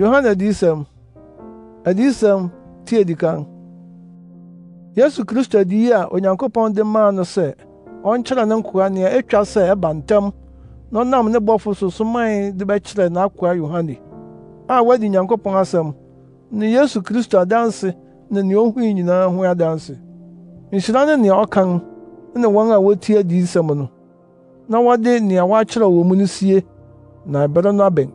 yohane adiyisɛm adiyisɛm ti edi kan yesu kristo adiyi a onyankopɔn de maa no sɛ ɔnkyerɛ ne nkoa nea etwa sɛ ɛba ntɛm na nam ne bɔfo so soman de bɛkyerɛ n'akoa yohane a wadi nyankopɔn asɛm ne yesu kristo adanse ne nea ohui nyinaa ho adanse nhyira ne nea ɔkan ne wɔn a wotie adiyisɛm no na wɔde nea wɔakyerɛw wɔ mu no sie na ɛbɛrɛ no abɛn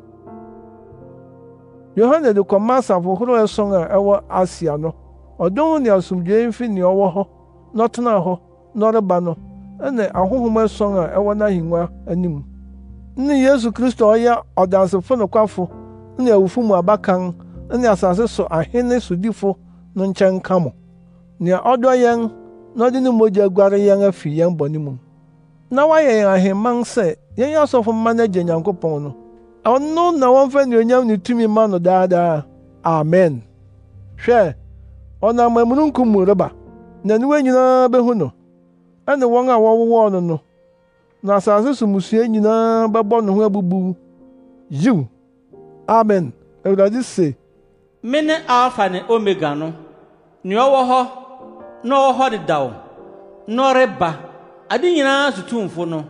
yohane de kɔma asafo horow ɛson a ɛwɔ asia no ɔdom ne asomdwoe mfi nea ɔwɔ hɔ na ɔtenaa hɔ na no ɛne ahohom ɛson a ɛwɔ n'ahengua anim ne yesu kristo a ɔyɛ ɔdansefo nokwafo ne awufo mu abakan ne asase so ahene sodifo no nkyɛn nka mo nea ɔdɔ yɛn na ɔde ne mogya guare yɛn afi yɛn bɔne mu na wayɛ yɛn ahemman sɛ yɛnyɛ asɔfo mma no agye nyankopɔn no ɔno na wɔmfa nnuonyam ne tumi mma no daadaa amen hwɛ ɔnam amununkum mu reba na aniwa nyinaa behu no ɛne wɔn a wɔwowɔɔ no no na asase so mmusua nyinaa bɛbɔ ne ho abubu yiw amen awurade se mene alfa ne omega no nea ɔwɔ hɔ na ɔwɔ hɔ dedaw na ɔreba ade nyinaa sotumfo no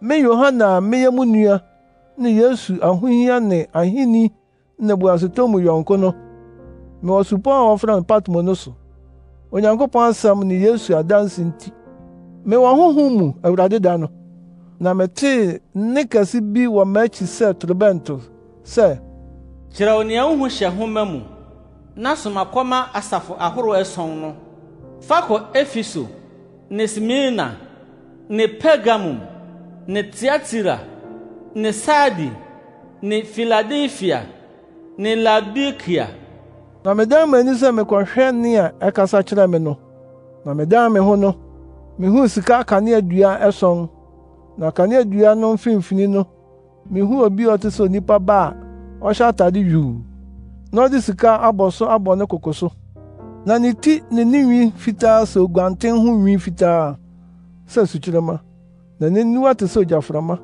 me yohane a meyɛ mu nua ne Yesu ahụhịa ne ahenni nnebuasetɔ mu yɔnko no mewɔ supɔw a wɔfrɛ no Patmo no so. Onyankopɔn asɛm ne Yesu adanse nti, mewɔ honhom mu Awurade da no, na metee nne kɛse bi wɔ m'akyi sɛ torobɛnto sɛ, “Kyerɛw nea wuhu hyɛ nhoma mu, na soma kɔma asafo ahorow ason no, fa kɔ Efeso ne Smirna ne Pergamum ne Tiatira ni sadi ni filadelfia ni Labikia. na medan m'ani sɛ mekɔhwɛ nea ɛkasa kyerɛ me no na medan me ho no mihuu sika kaneadua ɛson na kaneadua no mfimfini no mihuu obi a ɔte sɛ onipa ba a ɔhyɛ atade yuu na ɔde sika abɔ so abɔ ne koko so na ne ti ne ne nwi fitaa sɛ oguanten ho nwi fitaa sɛ sukyerɛma na n'aniwa te sɛ ogyaframa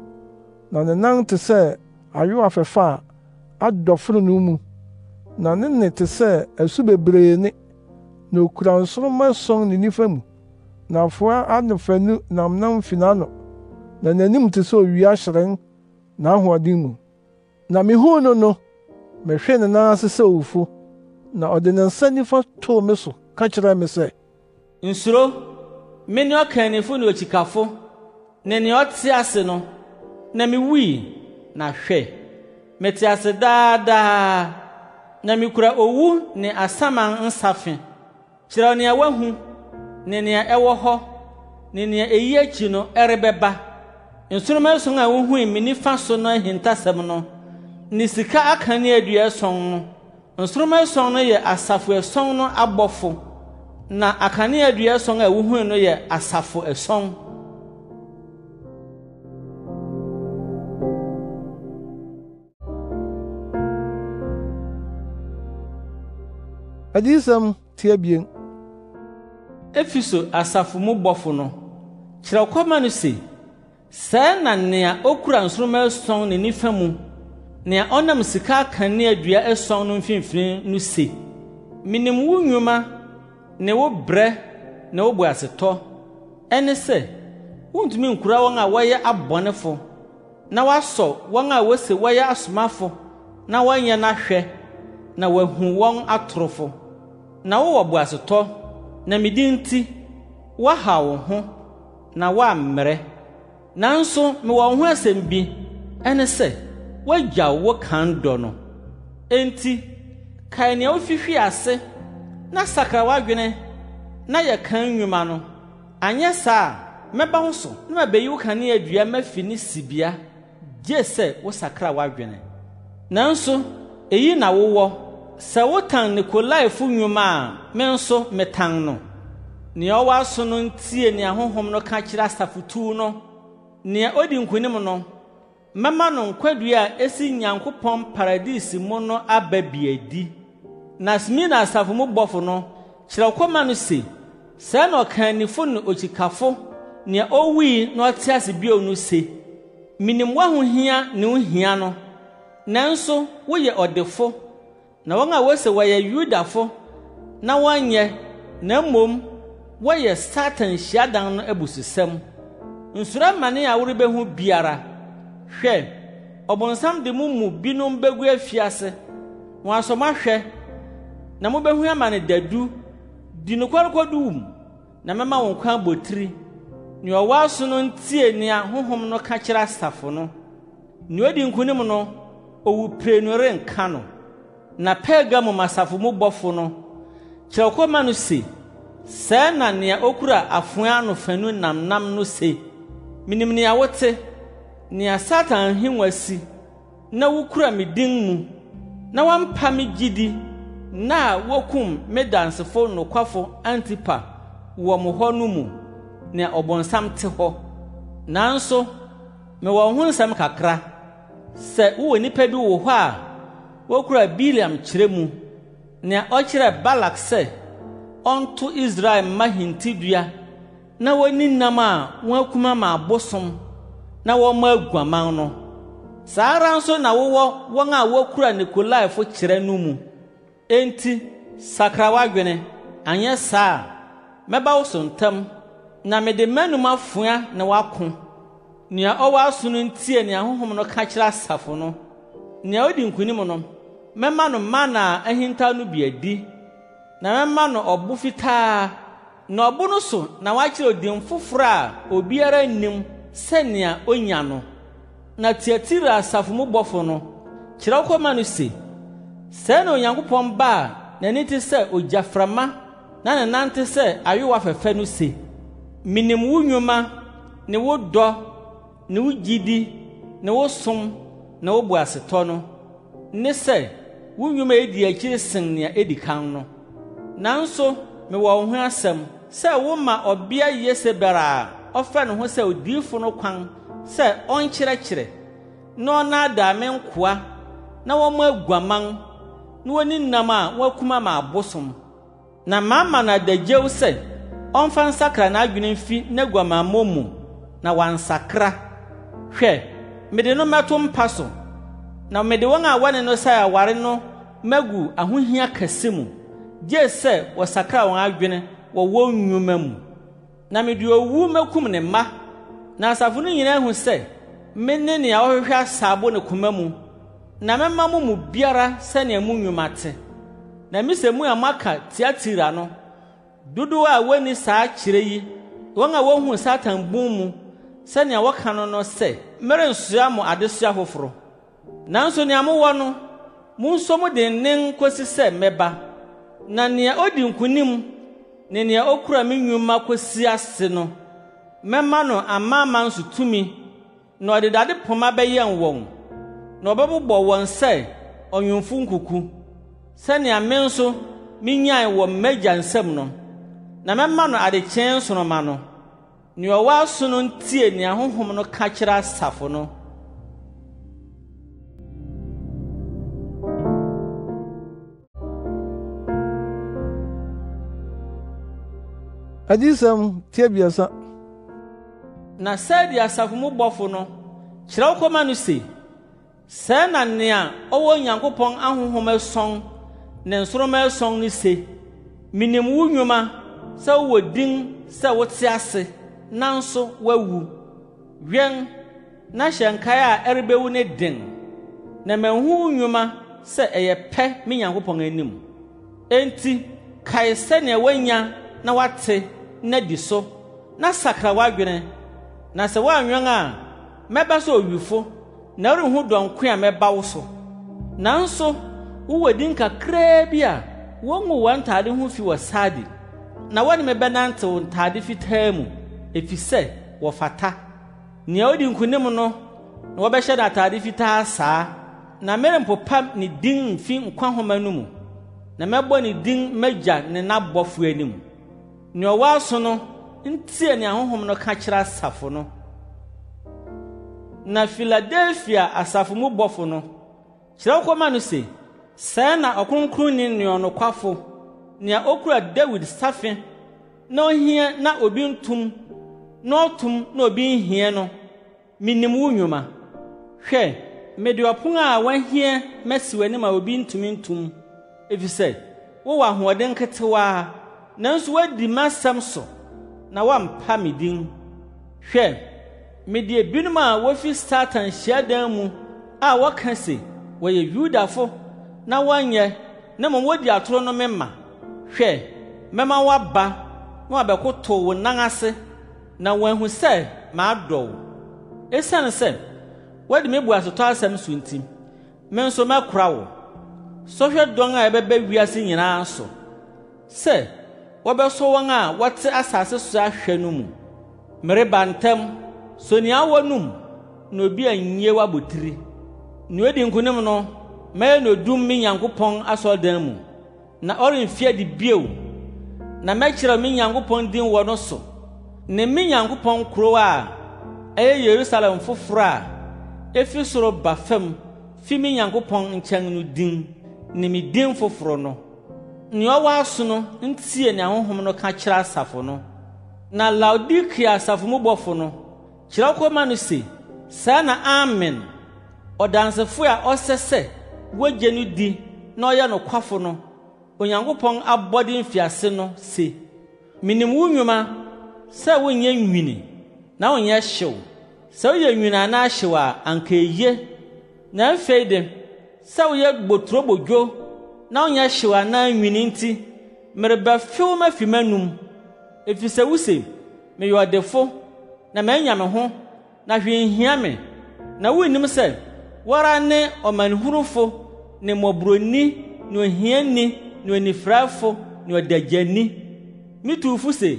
na ne nan te sɛ ayowa fɛfa a adɔforo no mu na ne nne te sɛ asu bebree ne na okura nsoroma ason ne nifa mu na afoa adefanu nam nam fi n'ano na n'anim te sɛ owia hyerɛn n'ahoɔden mu na mihuu no no mehwee ne nan ase sɛ owufo na ɔde ne nsa nifa too me so ka kyerɛɛ me sɛ nsuro me ne ɔkannifo ne okyikafo ne nea ɔte ase no na mewui na hwɛ mete ase daadaa na mikura owu ne asaman nsafe kyerɛw nea woahu ne nea ɛwɔ hɔ ne nea eyi akyi no ɛrebɛba nsoroma ason a wuhui me nifa so no ahintasɛm no ne sika aka ne adua ason no nsoroma ason no yɛ asafo ason no abɔfo na akanea adua ason a wuhui no yɛ asafo ason adiyisɛm tia bien efiso asafo mu bɔfo no kyerɛw kɔma no se sɛɛ na nea okura nsoromma ason ne nifa mu nea ɔnam sika akanea dua ason no mfinfin no se minim wo nnwuma ne wo brɛ ne wo boasetɔ ɛne sɛ wontumi nkura wɔn a wɔyɛ abɔnefo na w'asɔ wɔn a wose wɔyɛ asomafo na wɔnyɛ n'ahwɛ na wɔahu wɔn atorofo na wowɔ boasetɔ na me nti woahaw wo ho na woammrɛ nanso mewɔ wo ho asɛm bi ɛne sɛ woagyaw wo kan dɔ no enti kae nea wofihwii ase na sakra w'adwene na yɛ kan nnwuma no anyɛ saa a mɛba wo so na mabeyi wo kanea dua mafi ne sibea gye sɛ wo sakra w'adwene nanso eyi na wowɔ sɛ wotan nikolaifo nnwuma a me nso metan no nea ɔwɔ aso no ntie nea honhom no ka kyerɛ asafotuo no nea odi nkonim no mɛma no nkwadua a esi nyankopɔn paradisi mu no aba biadi na smina asafo mu bɔfo no kyerɛ kɔma no se sɛɛ na ɔkanifo ne okyikafo nea owui na ɔte ase bio no se minim w'ahohia ne wo hia no nanso woyɛ ɔdefo na wɔn a wɔse wɔyɛ Yudafo na wɔnyɛ na mmom wɔyɛ Satan hyiadan no abususɛm. Nsuro amane a worebehu biara. Hwɛ, ɔbonsam de mo mu binom begu afiase. Wɔn asɔm ahwɛ na mobehu amane dadu di nokware kɔdu wum na mɛma wɔn kwan abotiri. Nea ɔwɔ aso no ntie nea honhom no ka kyerɛ asafo no. Nea odi nkonim no, owu pire no renka no. na Pergamo masafo mu bɔfo no kyerɛw kɔma no se sɛɛ na nea okura afoa ano fanu nam nam no se minim nea wote nea satan ahengua si na wukura me din mu na woampa me gyidi na wokum me dansefo nokwafo antipa wɔ mo hɔ no mu nea ɔbɔnsam te hɔ nanso mewɔ ho nsɛm kakra sɛ wowɔ nnipa bi wo hɔ a wokura biliam kyerɛ mu nea ɔkyerɛɛ balak sɛ ɔnto israel mma hintidua na wonni nam a wɔn akuma ma abosom na wɔmma aguaman no saa ara nso na wowɔ wɔn a wokura nikolaifo kyerɛ no mu enti sakra w'adwene anyɛ saa a mɛba wo so ntam na mede m'anom afoa na woako nea ɔwɔ aso no ntie nea honhom no ka kyerɛ asafo no nea odi nkonim no mɛma no mana a ahintaw no bi adi na mɛma no ɔbo fitaa na ɔbo no so na wakyerɛ odin foforɔ a obiara nnim sɛnea onya no na tiatiri asafo mu bɔfo no kyerɛw kɔma no se sɛɛ na onyankopɔn ba a n'ani te sɛ ogyaframa na ne nan te sɛ ayowa fɛfɛ no se minim wo nnwuma ne wo dɔ ne wo gyidi ne wo som ne wo boasetɔ no ne sɛ wo nnwuma edi akyiri sen nea edi kan no nanso mewɔ wo ho asɛm sɛ woma ɔbea yesebel a ɔfa ne ho sɛ odiifo no kwan sɛ ɔnkyerɛkyerɛ na ɔnaadaa me nkoa na wɔmmɔ aguaman na woni nam a wɔakuma ma abosom na mama na adagyew sɛ ɔmfa nsakra n'adwene mfi n'aguamammɔ mu na wansakra hwɛ mede no mɛto mpa so na mede wɔn a wɔne no sɛ aware no magu ahohia kɛse mu gye sɛ wɔsakra wɔn adwene wɔ wɔn nnwuma mu na mede owu makum ne mma na asafo no nyinaa hu sɛ mene nea ɔhwehwɛ asaabo ne koma mu na mɛma mo mu biara sɛnea mu nnwuma te na misɛ mu a moaka tiatira no dodow a wonni saa kyerɛ yi wɔn a wohu satan bun mu sɛnea wɔka no no sɛ merensua mo adesoa foforo nanso nea mowɔ no mo dennen kosi sɛ mɛba na nea odi nkonim ne nea okura me nnwuma kosi ase no mɛma no tumi na ɔde dade poma wɔn na ɔbɛbobɔ wɔn sɛ ɔnwemfo nkuku sɛnea me nso minyae wɔ m'agya nsam no na mɛma no adekyɛn nsoroma no nea ɔwɔ aso no ntie nea honhom no ka asafo agyesɛm tiabiasa na sɛdeɛ asafo mu bɔfo no kyerɛw kɔma no se sɛɛ na nea ɔwɔ onyankopɔn ahonhom ason ne nsoromma ason no se minim wo nnwuma sɛ wowɔ din sɛ wote ase nanso woawu wɛn na hyɛ nkae a ɛrebewu ne den na manhu wo nnwuma sɛ ɛyɛ pɛ me nyankopɔn anim enti kae sɛnea woanya na woate na di so na sakra w'adwene na sɛ woanwɛn a mɛba sɛ owifo na worenhu dɔnko a mɛba wo so nanso wowɔ din kakraa bi a wɔngu wɔn ntaade ho fi wɔ saade na wɔne me bɛnantew ntaade fitaa mu efisɛ wɔfata nea odi nkonim no na wɔbɛhyɛ no ataade fitaa saa na merempopa ne din mfi nkwa homa no mu na mɛbɔ ne din magya ne n'abɔfo anim nea ɔwɔ aso no ntie nea honhom no ka kyerɛ asafo no na filadelfia asafo mu bɔfo no kyerɛw kɔma no sɛ sɛɛ na ɔkronkronni nea ɔnokwafo nea okura dawid safe na ohia na obi ntum na ɔtom na obi nhia no minim wo nnwuma hwɛ mede ɔpon a wɔahia masi w'anim a obi ntumi ntum efisɛ wowɔ ahoɔden nketewa. nanso wadi m'asɛm so na woampa me din hwɛ mede ebinom a wofi satan hyiadan mu a wɔka se wɔyɛ yudafo na wɔnyɛ na mmom wodi atoro no me ma hwɛ mɛma woaba na wabɛkotow wo nan ase na wɔahu sɛ maadɔ wo esiane sɛ woadi me bu asetɔ asɛm so nti me nso mɛkora wo sɔhwɛ dɔn a ɛbɛba wiase nyinaa so sɛ wɔbɛsɔ wɔn a wɔte asase so ahwɛ no mu mereba ntɛm so nea awɔ no mu na obi annye w'abotiri nea odi nkonim no mɛyɛ no odum me nyankopɔn asɔredan mu na ɔremfi adi bio na mɛkyerɛ me nyankopɔn din wɔ no so ne me nyankopɔn kurow a ɛyɛ yerusalem foforɔ a efi soro ba fam fi me nyankopɔn nkyɛn no din ne me din foforɔ no nea ɔwɔ aso no ntie nea honhom no ka kyerɛ asafo no na laodikea asafo mu bɔfo no kyerɛw kɔma no se saa na amen ɔdansefo a ɔsɛ sɛ wogye no di na ɔyɛ nokwafo no onyankopɔn abɔde mfiase no se minim wo nnwuma sɛ wonyɛ nwini na wonyɛ hyew sɛ woyɛ nwini anaa hyew a anka eye na afei de sɛ woyɛ boturobodwo na ɔnyɛ hyew anaa nwini nti merebɛfew mafi m'anum efisɛ wuse meyɛ ɔdefo na manya me ho na hwee nhia me na wunnim sɛ wara ne ɔmanehunufo ne mmɔborɔni ne ohiani ne onifuraefo ne ɔdagyani metuufo se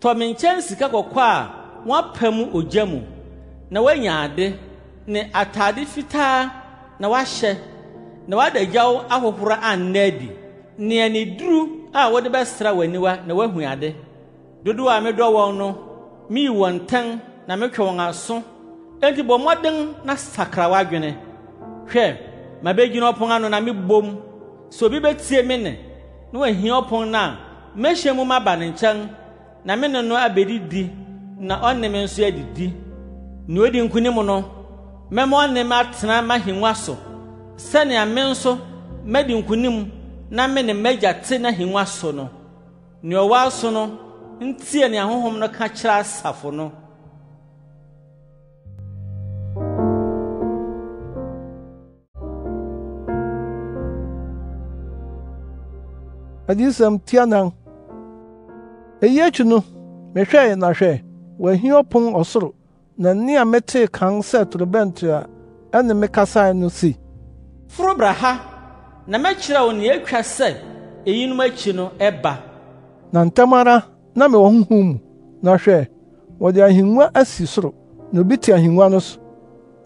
tɔ me nkyɛn sika kɔkɔ a wɔapa mu ogya mu na woanya ade ne atade fitaa na woahyɛ na w'adagyaw ahohoro anna adi nea ne duru a wode bɛsra w'aniwa na woahu ade dodow a medɔ wɔn no mii wɔn ntɛn na metwe wɔn aso enti bɔ mmɔden na sakra w'adwene hwɛ mabegyina ɔpon ano na mebom sɛ obi betie me nne na wahia ɔpon no a mehyia mu ba ne nkyɛn na me ne no abedidi na ɔne me nso adidi nea odi nkonim no mɛma ɔne me atena m'ahengua so sɛnea me nso madi nkonim na me ne m'agya te n'ahengua so no nea ɔwɔ aso no ntie nea honhom no ka kyerɛ asafo no adiyisɛm tianan eyi akyi no mehwɛe na hwɛ wɔahi ɔpon ɔsoro na nne a metee kan sɛ torobɛnto a ɛne me kasae no si foro bra ha na mɛkyerɛ wo nea etwa sɛ eyinom akyi no ɛba na ntɛm na mewɔ honhom mu na hwɛ wɔde ahengua asi soro na obi te ahengua no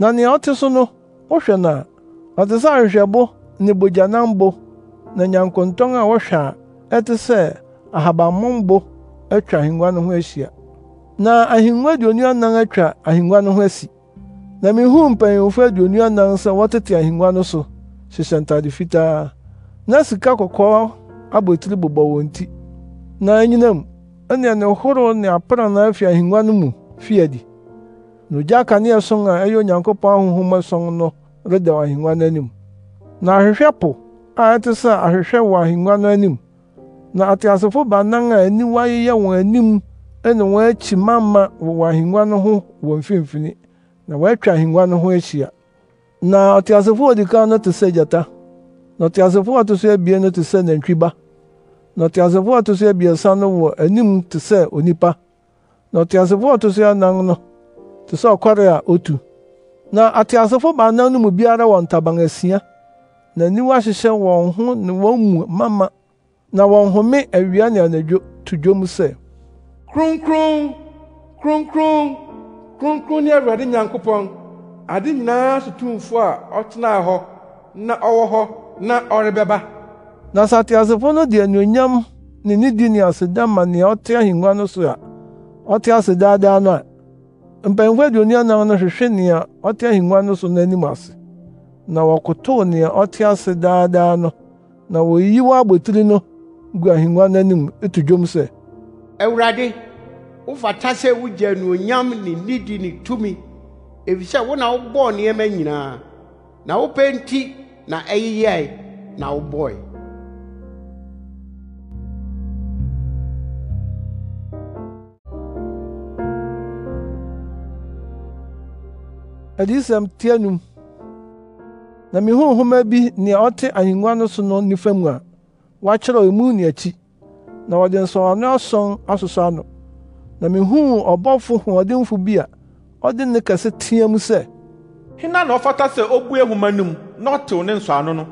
na nea so no wohwɛ no a ɔte sɛ ahwehwɛbo ne bogyanambo na nyankontɔn a wɔhwɛ a ɛte sɛ atwa ahengua no ho ahyia na ahengua aduonu anan atwa ahengua no ho asi na mihuu mpanyimfo aduonu anan sɛ wɔtete ahengua no hyehyɛ fitaa na sika kɔkɔɔ abotiri bobɔ wɔn ti na anyinam ne ne horow ne aprannaa afi ahengua no mu fi adi na ogya kanea sɔn a ɛyɛ onyankopɔn ahonhom ɛsɔn no redaw ahengua no anim na ahwehwɛ po a ɛte sɛ ahwehwɛ wɔ ahengua no anim na ateasefo baanan a aniwa yeyɛ wɔn anim ne wɔn akyi mamma wɔ ahengua no ho wɔ mfimfini na wɔatwa ahengua no ho ahyia na ɔteasefoɔ odi kan no te na ɔteasefoɔ a ɔto so abien no te na ɔteasefoɔ a ɔto so abiɛsa no wɔ anim te onipa na ɔteasefoɔ a ɔto so anan no te sɛ otu na ateasefo baanan no mu biara wɔ na aniwa hyehyɛ wɔn ho ne wɔn mu na wɔn home awia ne anadwo to dwom sɛ kronkron kronkron kronkron ne awurade nyankopɔn ade nyinaa so tumfo a ɔtenaa hɔ na ɔwɔ hɔ na ɔrebɛba na sɛ ateasefo no de anuonyam ne nidi ne aseda ma nea ɔte ahengua no so a ɔte ase daadaa no a mpanyimfo aduonu anan no hwehwɛ nea ɔte ahengua no so n'anim ase na wɔkotow nea ɔte ase daadaa no na woyiyi wɔ abotiri no gu ahengua no etu dwom sɛ awurade wofata sɛ wugya anuonyam ne nidi ne tumi efisɛ wo na wobɔɔ nneɛma nyinaa na wopɛ nti na ɛyeyɛe na wobɔe adiyisɛm tia num na mihuu nhoma bi nea ɔte ahengua no so no nifa mu a wɔakyerɛw emu ne akyi na wɔde nsɔwano asɔn asosɔ ano na mihuu ɔbɔfo hoɔdenfo bi a ɔde nne kɛse teɛ mu sɛ hena na ɔfata sɛ obue nhoma no mu na ɔtew ne nsɔano no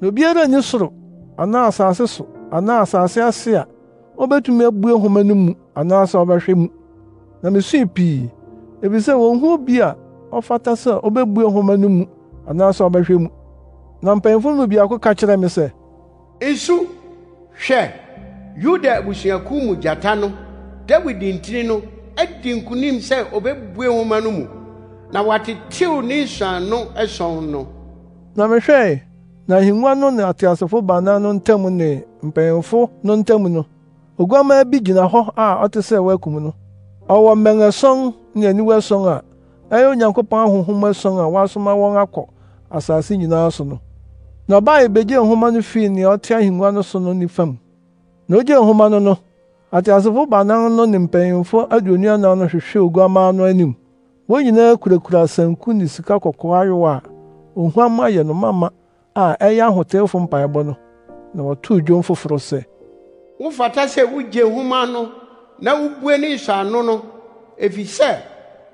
na obiara nni soro anaa asase so anaa asase ase a obetumi abue nhoma no mu anaasɛ ɔbɛhwɛ mu na misui pii efisɛ wonhu obi a ɔfata sɛ obebue nhoma no mu anaasɛ ɔbɛhwɛ mu na mpanyimfo no mu biako ka kyerɛɛ me sɛ nsu hwɛ yuda abusuakuw mu gyata no dawid ntini no adi nkunim sɛ obɛbue nwoma no mu na watetew ne nsuano ɛsɔn no na mehwɛe na ahengua no ne ateasefo baana no ntam ne mpanyimfo no ntam no oguamaa bi gyina hɔ a ɔte sɛ wɔakum no ɔwɔ mmɛn ason ne aniwa ason a ɛyɛ onyankopɔn ahonhom ason a wɔasoma wɔn akɔ asase nyinaa so no na ɔbaa ebegyee nhoma no fii nea ɔte ahengua no so no nifa mu na ogyee nhoma no no ateasefo baanan no ne mpanyimfo aduonu anan no hwehwee oguamma no anim wɔn nyinaa kurakura sanku ne sika kɔkɔɔ ayowa a ohuamma yɛ no mama a ɛyɛ ahotewfo mpaebɔ no na wɔtoo dwom foforo sɛ wofata sɛ wugye nhoma no na wubue ne nsɔano no efisɛ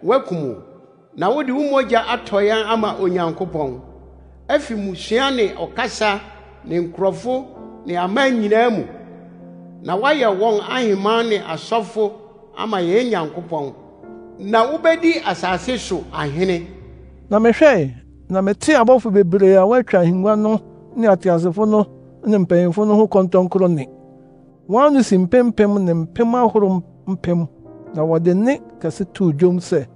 woakum o na wode wo mogya atɔ yɛn ama onyankopɔn afi musua ne ɔkasa ne nkurɔfo ne aman nyinaa mu na wayɛ wɔn aheman ne asɔfo ama yɛn nyankopɔn na wubedi asase so ahene na mehwɛe na metee abɔfo bebree a wɔatwa ahengua no ne ateasefo no ne mpanyimfo no ho kɔntɔnkoro nne wɔn ano si mpempem ne mpem ahorow mpem na wɔde nne kɛse too dwom sɛ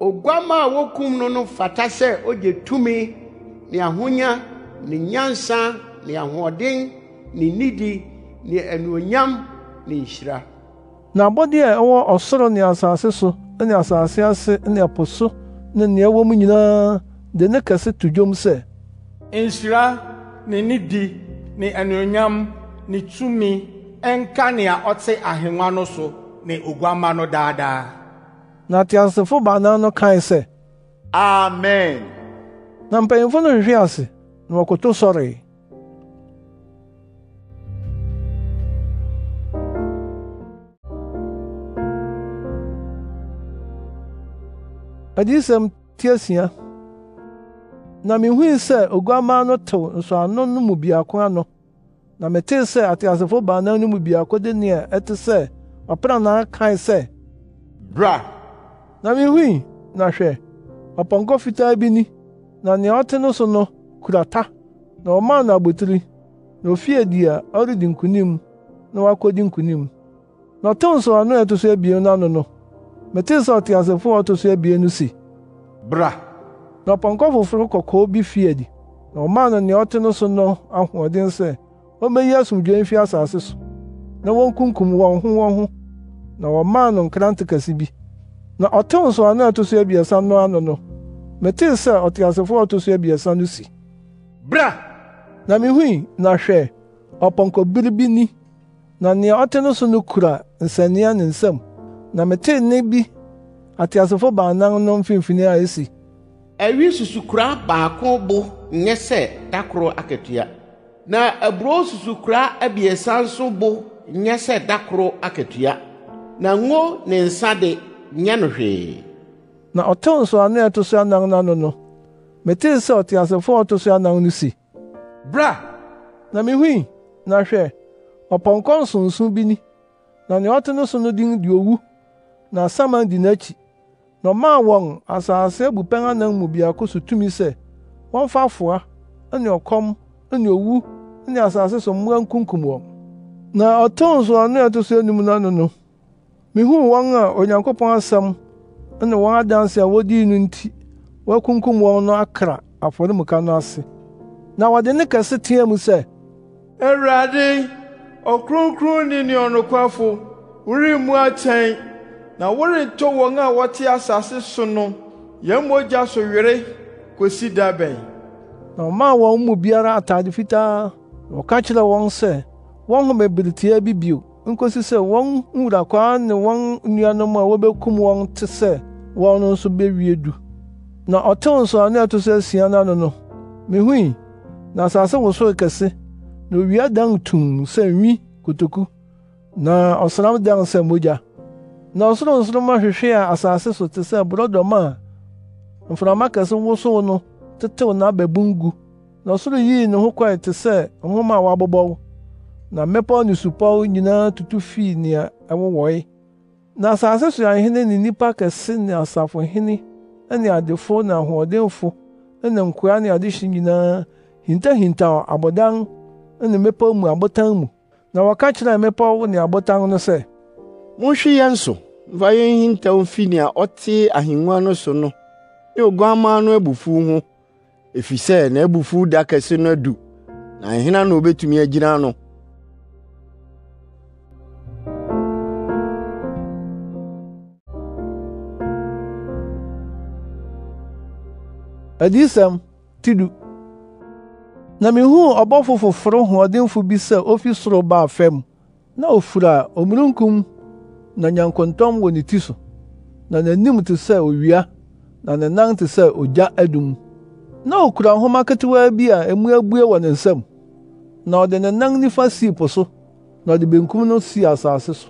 oguamma a wokum no no fata sɛ ogye tumi ne ahonya ne nyansa ne ahoɔden ne nidi ne anuonyam ne nhyira na abɔde a ɛwɔ ɔsoro ne asase so ne asase ase ne ɛpo so ne nea ɛwɔ mu nyinaa de ne kɛse to dwom sɛ nhyira ne nidi ne anuonyam ne tumi ɛnka nea ɔte ahengua no so ne oguamma no daadaa na teasefo baanan no kae sɛ amen na mpanyimfo no hwehwee ase na wɔkoto sɔree adiyisɛm tiasia na mihui sɛ oguamma no tew nsɔano no mu biako ano na metee sɛ ateasefo baanan no mu biako de nea ɛte sɛ ɔpranaa kae sɛ bra na mihui na hwɛ ɔpɔnkɔ fitaa bi ni na nea ɔte no so no kura ta na ɔmaa no abotiri na ofie di a ɔredi nkunim na wakodi nkunim na ɔtew nsɔano a ɛto so abien no ano no metee sɛ ɔteasefo a ɔto so abien no se bra na ɔpɔnkɔ foforo kɔkɔɔ bi fii adi na ɔmaa no nea ɔte no so no ahoɔden sɛ ommeyi asomdwoe mfi asase so na wonkunkum wɔn ho wɔn ho na wɔmaa no nkrante kɛse bi na ɔtew nsɔano a ɛto so abiɛsa no ano no metee sɛ ɔteasefo a ɔto so abiɛsa no si bra na mihui na hwɛ ɔpɔnkɔbere biribi ni na nea ɔte no so no kura nsania ne nsam na metee nne bi ateasefo baanan no mfimfini a esi awi susukora baako bo nyɛ sɛ dakoro akatua na aburo susukora abiɛsa nso bo nyɛ sɛ dakoro akatua na ngo ne nsa de nyɛ no hwee na ɔtew nsoano a ɛto so anan no ano no metee sɛ ɔteasefo a ɔto so anan no si bra na mihui na hwɛ ɔpɔnkɔ nsonso bi ni na nea ɔte no so no din de owu na Saman di n'ekyi na ɔmaa wɔn asase abupɛn anan mu baako so tumi sɛ wɔmfa afoa ne ɔkɔm ne owu ne asase so mmoa nkunkum wɔn na ɔtoo nsoano a ɛto so enum no ano no mihuu wɔn a Onyankopɔn asɛm ne wɔn adanse a wodii no nti wɔakunkum wɔn no akra afɔremuka no ase na wɔde ne kɛse teɛ mu sɛ awurade ɔkronkronni ne ɔnokwafo woremmu akyɛn na worentɔ wɔn a wɔte asase so no yɛn mogya so were kosi da bɛn na ɔmaa wɔn mu biara atade fitaa na ɔka kyerɛɛ wɔn sɛ wɔnhome beretia bi bio nkosi sɛ wɔn nwurakwaa ne wɔn nnuanom a wobekum wɔn te sɛ wɔn no nso bewie du na ɔtew nsɔano a ɛto so asia no ano no mihui na asase wosoo kɛse na owia dan tum sɛ nwi kotoku na ɔsram dan sɛ mogya na nsoroma hwehwee a asase so te sɛ borɔdɔma a mframa kɛse wosow no tetew n'ababun gu na ɔsoro yii ne ho kɔe te sɛ nhoma a wɔabobɔw na mmepɔw ne supɔw nyinaa tutu fii nea ɛwowɔe na asase so ahene ne nnipa kɛse ne asafohene ne adefo ne ahoɔdenfo ne nkoa ne adehye nyinaa hintahintaw abodan ne mmepɔw mu abotan mu na wɔka kyerɛɛ mmepɔw ne abotan no sɛ Monhwe yɛn so mfa yɛn nhintaw mfi nea ɔte ahengua no so no ne Oguamma no abufuw ho, efisɛ n'abufuw da kɛse no adu, na hena na obetumi agyina ano? Adiyisɛm ti du. Na mihuu ɔbɔfo foforo hoɔdenfo bi sɛ ofi soro baa fam, na ofura omununkum na nyankontɔm wɔ ne ti so na n'anim te sɛ owia na ne nan te sɛ ogya adum na okura nhoma ketewaa bi a emu abue wɔ ne nsam na ɔde ne nan nifa sii po so na ɔde benkum no sii asase so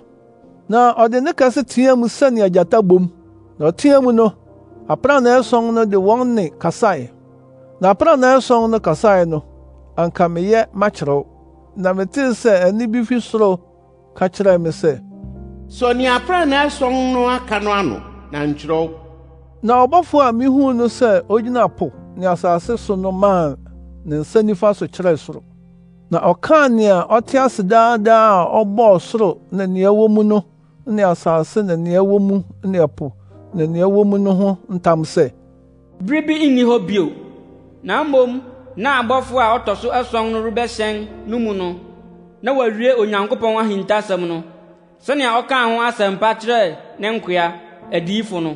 na ɔde ne kɛse teɛ mu sɛnea gyata bom na ɔteɛ mu no aprannaa ɛsɔn no de wɔn ne kasae na aprannaa ɛsɔn no kasae no anka makyerɛw na metee sɛ ɛne bi fi soro ka kyerɛɛ me sɛ so nea aprɛnaa ason no aka no ano na nkyerɛw na ɔbɔfo a mihuu no sɛ ogyina po ne asase so no maa ne nsa nifa so kyerɛɛ soro na ɔkaa nea ɔte ase daadaa a ɔbɔɔ soro ne nea ɛwɔ mu no ne asase ne nea ɛwɔ mu ne ɛpo ne nea ɛwɔ mu no ho ntam sɛ bere bi nni hɔ bio na mmom na abɔfo a ɔtɔ so ason no rebɛhyɛn no mu no na wɔawie onyankopɔn ahintasɛm no sɛnea ɔkaa ho asɛmpa kyerɛɛ ne nkoa adiyifo no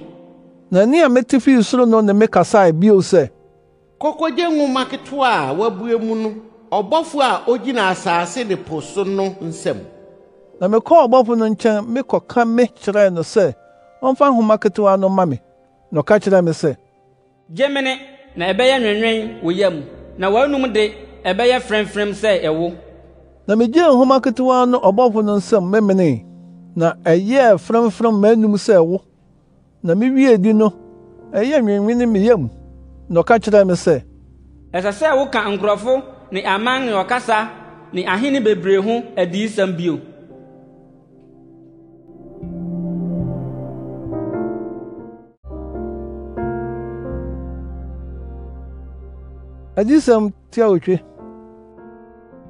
na ɛne a mete fii soro no ne mekasae bio sɛ kɔkɔgye nwoma ketewa a wɔabue mu no ɔbɔfo a ogyina asaase ne po so no nsɛm na mekɔɔ ɔbɔfo no nkyɛn mekɔka me kyerɛɛ no sɛ ɔmfa nhoma ketewa no ma me na ɔka kyerɛɛ me sɛ gye mene na ɛbɛyɛ nwɛnwɛn wɔ yam na w'anom de ɛbɛyɛ frɛmfrɛm sɛ ɛwo na migyee nhoma ketewa no ɔbɔfo no nsɛm memenee na ɛyɛɛ frɛmfrɛm m'anom sɛ wo na miwie di no ɛyɛɛ nwenwene me yam na ɔka kyerɛɛ me sɛ ɛsɛ sɛ woka nkurɔfo ne aman ne ɔkasa ne ahene bebree ho adiyisɛm bio adiyisɛm otwe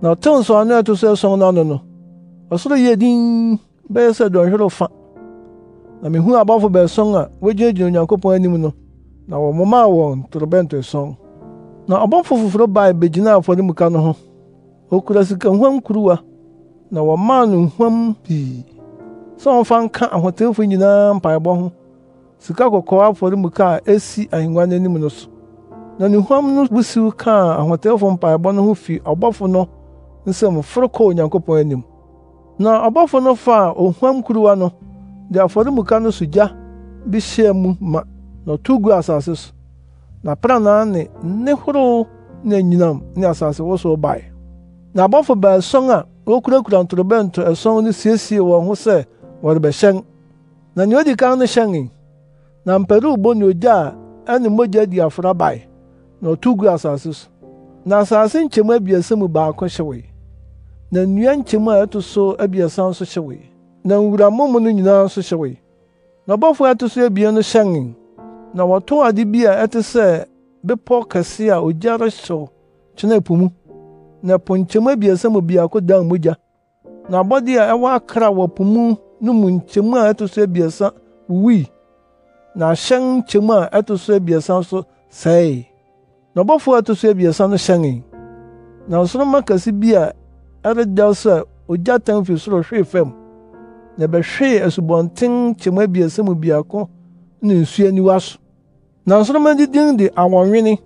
na ɔtew nsɔano a ɛto so ason no ano no ɔsoro yɛ din bɛyɛ sɛ dɔnhwere fa na mihuu abɔfo bɛson a wogyinagyina onyankopɔn anim no na wɔmomaa wɔn torobɛnto ason na ɔbɔfo foforo bae begyinaa afɔremuka no ho okura sikahuam kuruwa na wɔmaa no nhuam pii sɛ ɔmfa nka ahotewfo nyinaa mpaebɔ ho sika kɔkɔɔ afɔremuka a esi ahengua no anim no so na ne huam no wusiw kaa ahotewfo mpaebɔ no ho fi ɔbɔfo no nsɛm foro kɔɔ onyankopɔn anim na ɔbɔfo no faa ohuam kuruwa no de afɔremuka no so gya bi hyɛɛ mu ma na ɔtow guu asase so na pranaa ne nne horow ne anyinam ne asase wosow bae na abɔfo baason a wokurakura ntorobɛnto ɛson no siesie wɔn ho sɛ wɔrebɛhyɛn na nea odi kan no hyɛnee na mparuwbo ne ogya a ɛne mogya di afra bae na ɔtow guu asase so na asase nkyɛmu abiɛsa mu baako hyewee na nnua nkyɛmu a ɛto so abiɛsa nso hyɛ wei na nwuramomo no nyinaa nso hyɛ wei na ɔbɔfo a ɛto so abien no hyɛnee na wɔtɔw ade bi a ɛte sɛ bepɔw kɛse a ogya rehyew kyena po mu na po nkyɛmu abiɛsa mu biako dan mogya na abɔde a ɛwɔ akra wɔ po mu no mu nkyɛmu a ɛto so abiɛsa wuwui na ahyɛn nkyɛmu a ɛto so abiɛsa nso sɛee na ɔbɔfo a ɛto so abiɛsa no hyɛnee na nsoromma kɛse bi a ɛredɛw sɛ ogyatan fi soro hwee fam na ɛbɛhwee asubɔnten kyɛm abiɛsa mu biako ne nsu aniwa so na nsoroma didin de awɔnwene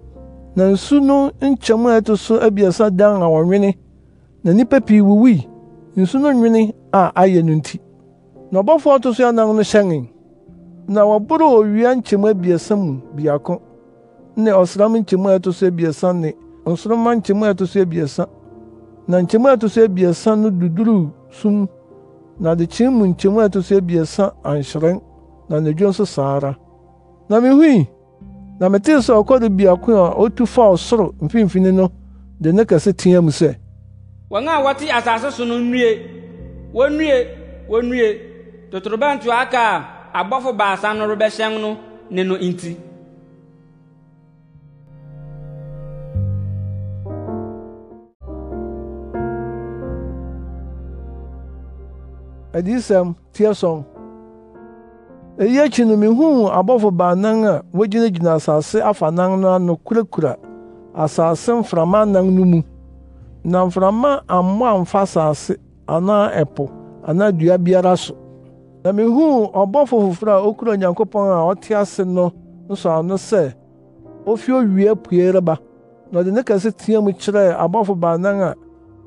na nsu no nkyɛm a ɛto so abiɛsa dan awɔnwene na nnipa pii wuwui nsu no nwene a ayɛ no nti na ɔbɔfo a ɔto so anan no hyɛnee na wɔboroo owia nkyɛm abiɛsa mu biako ne ɔsram nkyɛm a ɛto so abiɛsa ne nsoroma nkyɛm a ɛto so abiɛsa na nkyɛmu a ɛto so abiɛsa no duduru sum na adekyee mu nkyɛmu a ɛto so abiɛsa anhyerɛn na anadwo nso saa ara na mihui na metee sɛ ɔkɔre biako a otu faa ɔsoro mfimfini no de ne kɛse teɛ mu sɛ wɔn a wɔte asase so no nnue wonnue wonnue totorobɛnto aka a abɔfo baasa no rebɛhyɛn no ne no nti adiyisɛm teɛ sɔn eyi akyi no mihuu abɔfo baanan a wogyinagyina asase afanan no ano kurakura asase mframa anan no mu na mframa ammɔ amfa asase anaa ɛpo anaa dua biara so na mihuu ɔbɔfo foforo a okura onyankopɔn a ɔte ase no nso ano sɛ ofi owie pue reba na ɔde ne kɛse teɛ mu kyerɛ abɔfo baanan a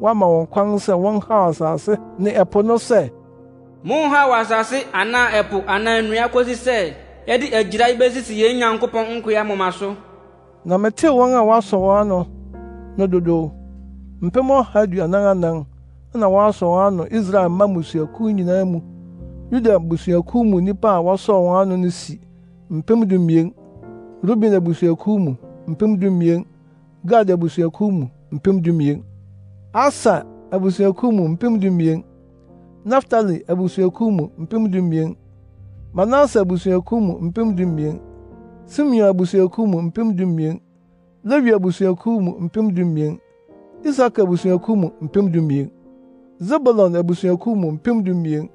wɔama wɔn kwan sɛ wɔnhaw asase ne ɛpo no sɛ monha wɔ asase anaa ɛpo anaa nnua kosi sɛ yɛde agyirae besisi yɛn nyankopɔn nkoa moma so na metee wɔn a wɔasɔ wɔn ano no dodow mpem ɔha aduanan anan na wɔasɔ wɔn ano israel mma mmusuakuw nyinaa mu yuda abusuakuw mu nnipa a wɔsɔɔ wɔn ano no si mpem dumien ruben abusuakuw mu mpem dumien gad abusuakuw mu mpem dumien aser abusuakuw mu mpem dumien naftali abusuakuw mu mpem dumien manase abusuakuw mu mpem dumien simeon abusuakuw mu mpem dumien lewi abusuakuw mu mpem dumien isaka abusuakuw mu mpem dumien zebulon abusuakuw mu mpem dumien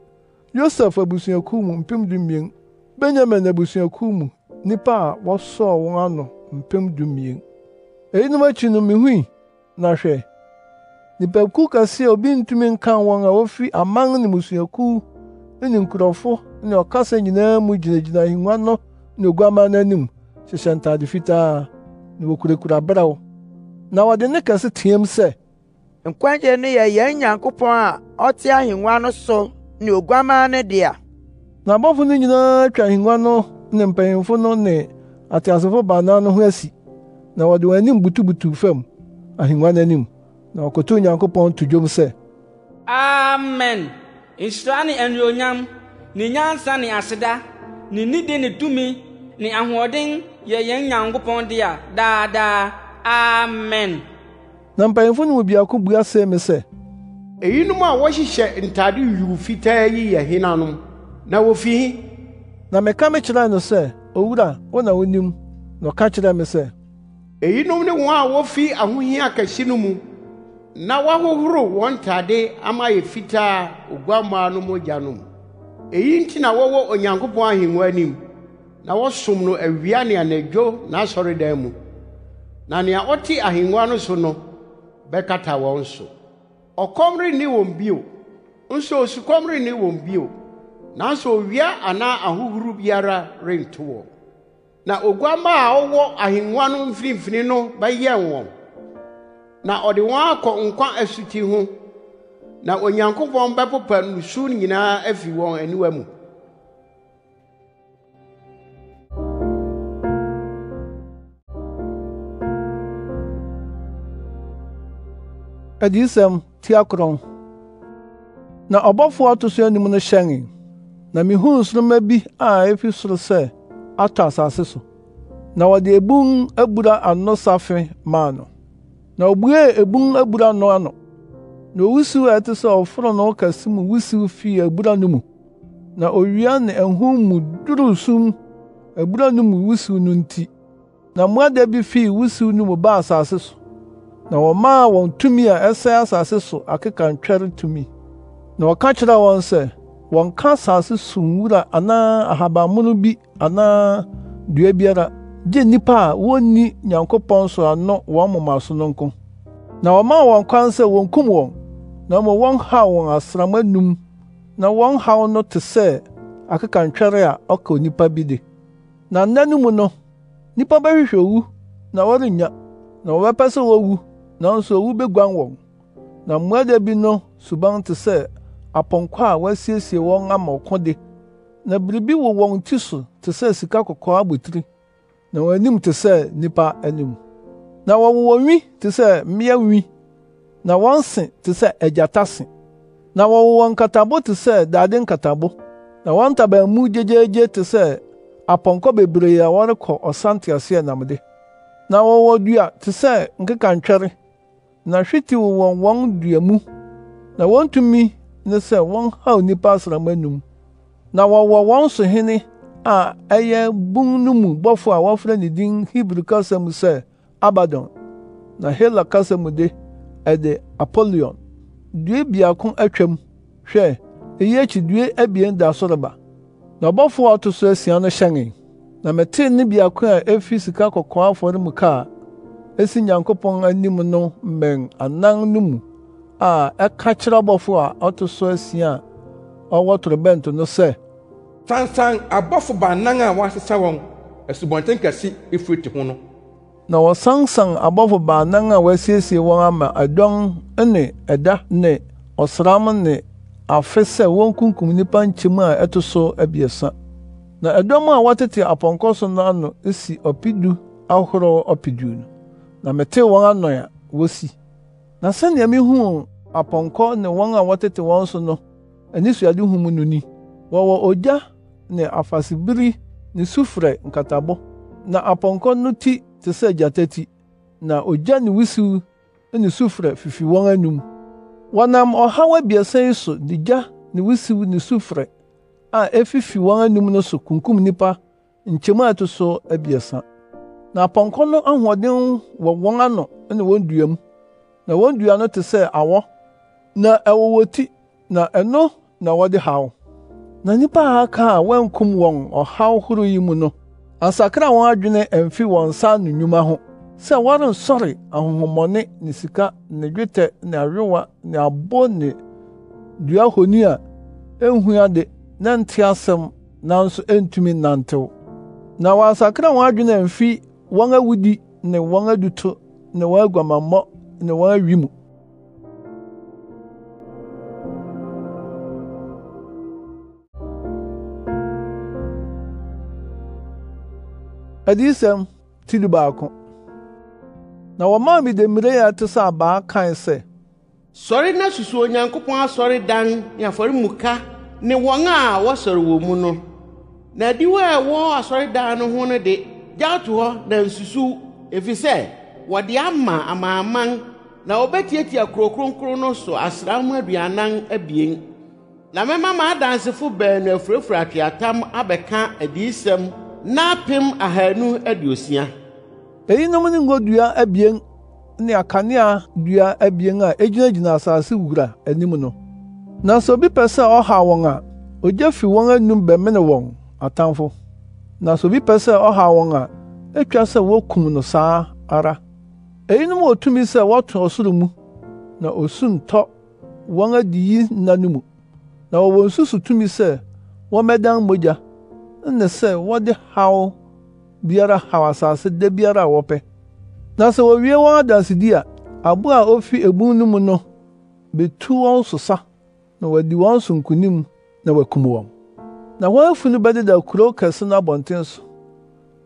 yosef abusuakuw mu mpem dumien benyamin abusuakuw mu nnipa a wɔsɔɔ wɔn ano mpem dumien eyinom akyi no mihui na hwɛ nipakuw kɛse a obi ntumi nka wɔn a wofi aman ne mmusuakuw ne nkurɔfo ne ɔkasa nyinaa mu gyinagyina ahengua no ne oguaman no anim hyehyɛ ntade fitaa na wokurakura berɛw na wɔde ne kɛse teɛm sɛ nkwagye no yɛ yɛn nyankopɔn a ɔte ahengua no so ne oguaman no dea na abɔfo no nyinaa atwa ahengua no ne mpanyimfo no ne ateasefo baanan no ho asi na wɔde wɔn anim butubutuw fam ahengua no anim na ɔkoto onyankopɔn to dwom sɛ amen nhyira ne anuonyam ne nyansa ne aseda ne nidi ne tumi ne ahoɔden yɛ yɛn nyankopɔn a daadaa amen na mpanyimfo no mu biako bua sɛ me sɛ eyinom a wɔhyehyɛ ntade yuu fitaa yi yɛ henanom na wofi he na meka me kyerɛe no sɛ owura wo na wonim na ɔka kyerɛɛ me sɛ eyinom ne wɔn a wofi ahohia kɛse no mu na wahohoro wɔn ntade ama yɛ fitaa oguammaa no mogya no mu eyi nti na wɔwɔ onyankopɔn ahengua anim na wɔsom no awia ne anadwo n'asɔredan mu na nea ɔte ahengua no so no bɛkata wɔn so ɔkɔm renni wɔn bio nso osukɔm renni wɔn bio nanso owia anaa ahohoro biara rento wɔn na oguammaa a ɔwɔ ahengua no mfinimfini no bɛyɛn wɔn na ɔde wɔn akɔ nkwa asuti ho na onyankopɔn bɛpopa nusu nyinaa afi wɔn aniwa mu adiyisɛm tiakorɔn na ɔbɔfo a ɔto so anim no hyɛnee na mihuu nsoroma bi a efi soro sɛ atɔ asase so na wɔde ebun abura ano safe maa no na obuee ebun abura no ano na owusiw a ɛte sɛ ɔfononoo kɛse mu wusiw fii abura no mu na owia ne ahum mu duruu sum ebura no mu wusiw no nti na mmoada bi fi wusiw no mu baa asase so na wɔmaa wɔn tumi a ɛsɛe asase so akeka ntwɛre tumi na wɔka kyerɛ wɔn sɛ wɔnka asase so nwura anaa ahabammono bi anaa dua biara gye nnipa a wonni nyankopɔn so ano wɔn moma so no nko na wɔmaa wɔn kwan sɛ wonkum wɔn na mmom wɔnhaw wɔn asram anum na wɔn haw no te sɛ akekantwɛre a ɔka onipa bi de na nna no mu no nnipa bɛhwehwɛ owu na wɔrennya na wɔbɛpɛ sɛ wowu nanso owu beguan wɔn na mmoada bi no suban te sɛ apɔnkɔ a wɔasiesie wɔn ama ɔko de na biribi wɔ wɔn ti so te sɛ sika kɔkɔɔ abotiri na wɔn anim te sɛ nipa anim na wɔwɔ wɔn nwi te sɛ mmea nwi na wɔn se te sɛ agyata se na wɔwɔ wɔn nkatabo te sɛ dade nkatabo na wɔn ntaban mu gyegyeegye te sɛ apɔnkɔ bebree a wɔrekɔ ɔsanteaseɛ nam de na wɔwɔ dua te sɛ nkekantwɛre na hwete wɔ wɔn wɔn dua mu na wɔn tumi ne sɛ wɔn haw nnipa asram anum na wɔwɔ wɔn sohene a ɛyɛ bun no mu bɔfo a wɔfrɛ ne din Hebri kasa mu sɛ Abaddon na Hela kasa mu de ɛde Apollyon due biako atwam hwɛ eyi akyi due abien da so na ɔbɔfo a ɔto so asia no hyɛn na metee ne biako a efi sika kɔkɔɔ afɔremuka a esi Nyankopɔn anim no mmɛn anan no mu a ɛka kyerɛ ɔbɔfo a ɔto so asia a ɔwɔ torobɛnto no sɛ sansan abɔfo baanan a wɔasesa wɔn asubɔnten kɛse efiriti ho no na wɔsansan abɔfo baanan a wɔasiesie wɔn ama ɛdɔm ne ɛda ne ɔsram ne afe sɛ wonkunkum nnipa nkyɛm a ɛto so abiɛsa na ɛdɔm a wɔtete apɔnkɔ so no ano si ɔpedu ahorow ɔpedu no na metee wɔn ano a wosi na sɛnea mihuu apɔnkɔ ne wɔn a wɔtete wɔn so no anisuadehu mu no ni wɔwɔ ogya ne afasibiri ne sufrɛ nkatabɔ na apɔnkɔ no ti te sɛ gyata ti na ogya ne wusiw ne sufrɛ fifi wɔn anum wɔnam ɔhaw abiɛsa yi so de gya ne wusiw ne sufrɛ a efifi wɔn anum no so kunkum nipa nkyɛmu a ɛto so abiɛsa na apɔnkɔ no ahoɔden wɔ wɔn ano ne wɔn dua mu na wɔn dua no te sɛ awɔ na ɛwɔ wɔn ti na ɛno na wɔde haw na nnipa a aka a wɔankum wɔn ɔhaw horow yi mu no asakra wɔn adwene amfi wɔn nsa ano nnwuma ho sɛ wɔrensɔre ahonhommɔne ne sika ne dwetɛ ne awewa ne abo ne dua honi a enhu ade na nte asɛm nanso entumi nnantew na wɔasakra wɔn adwene amfi wɔn awudi ne wɔn aduto ne wɔn aguamammɔ ne wɔn awi mu adiyisɛm ti du baako na wɔmaa me demmire a ɛte sɛ abaa kae sɛ sɔre na susu onyankopɔn asɔredan ne afɔremuka ne wɔn a wɔsɔre wɔ mu no na adiwo a ɛwɔ asɔredan no ho no de gyaw to hɔ na nsusuw efisɛ wɔde ama amanaman na wɔbɛtiatia kuro kronkron no so asram aduanan abien na mɛma m'adansefo baanu afurafura atweatam abɛka adiyisɛm n'apem ahanu aduosia eyinom ne ngodua abien ne akanea dua abien a egyinagyina asase wura anim no nanso obi pɛ sɛ ɔhaw wɔn a ogya fi wɔn anum bɛmene wɔn atamfo nanso obi pɛ sɛ ɔhaw wɔn a etwa sɛ wokum no saa ara eyinom wɔ tumi sɛ wɔto ɔsoro mu na osu ntɔ wɔn adiyi nna no mu na wɔwɔ nsusu tumi sɛ wɔmɛdan mogya nne sɛ wɔde haw biara haw asase de biara a wɔpɛ na sɛ wowie wɔn adansedi a abo a ofi ebun no mu no betu wɔn sosa na wɔadi wɔn so nkonim na wɔakum wɔn na wɔn afu no bɛdeda kurow kɛse no abɔnten so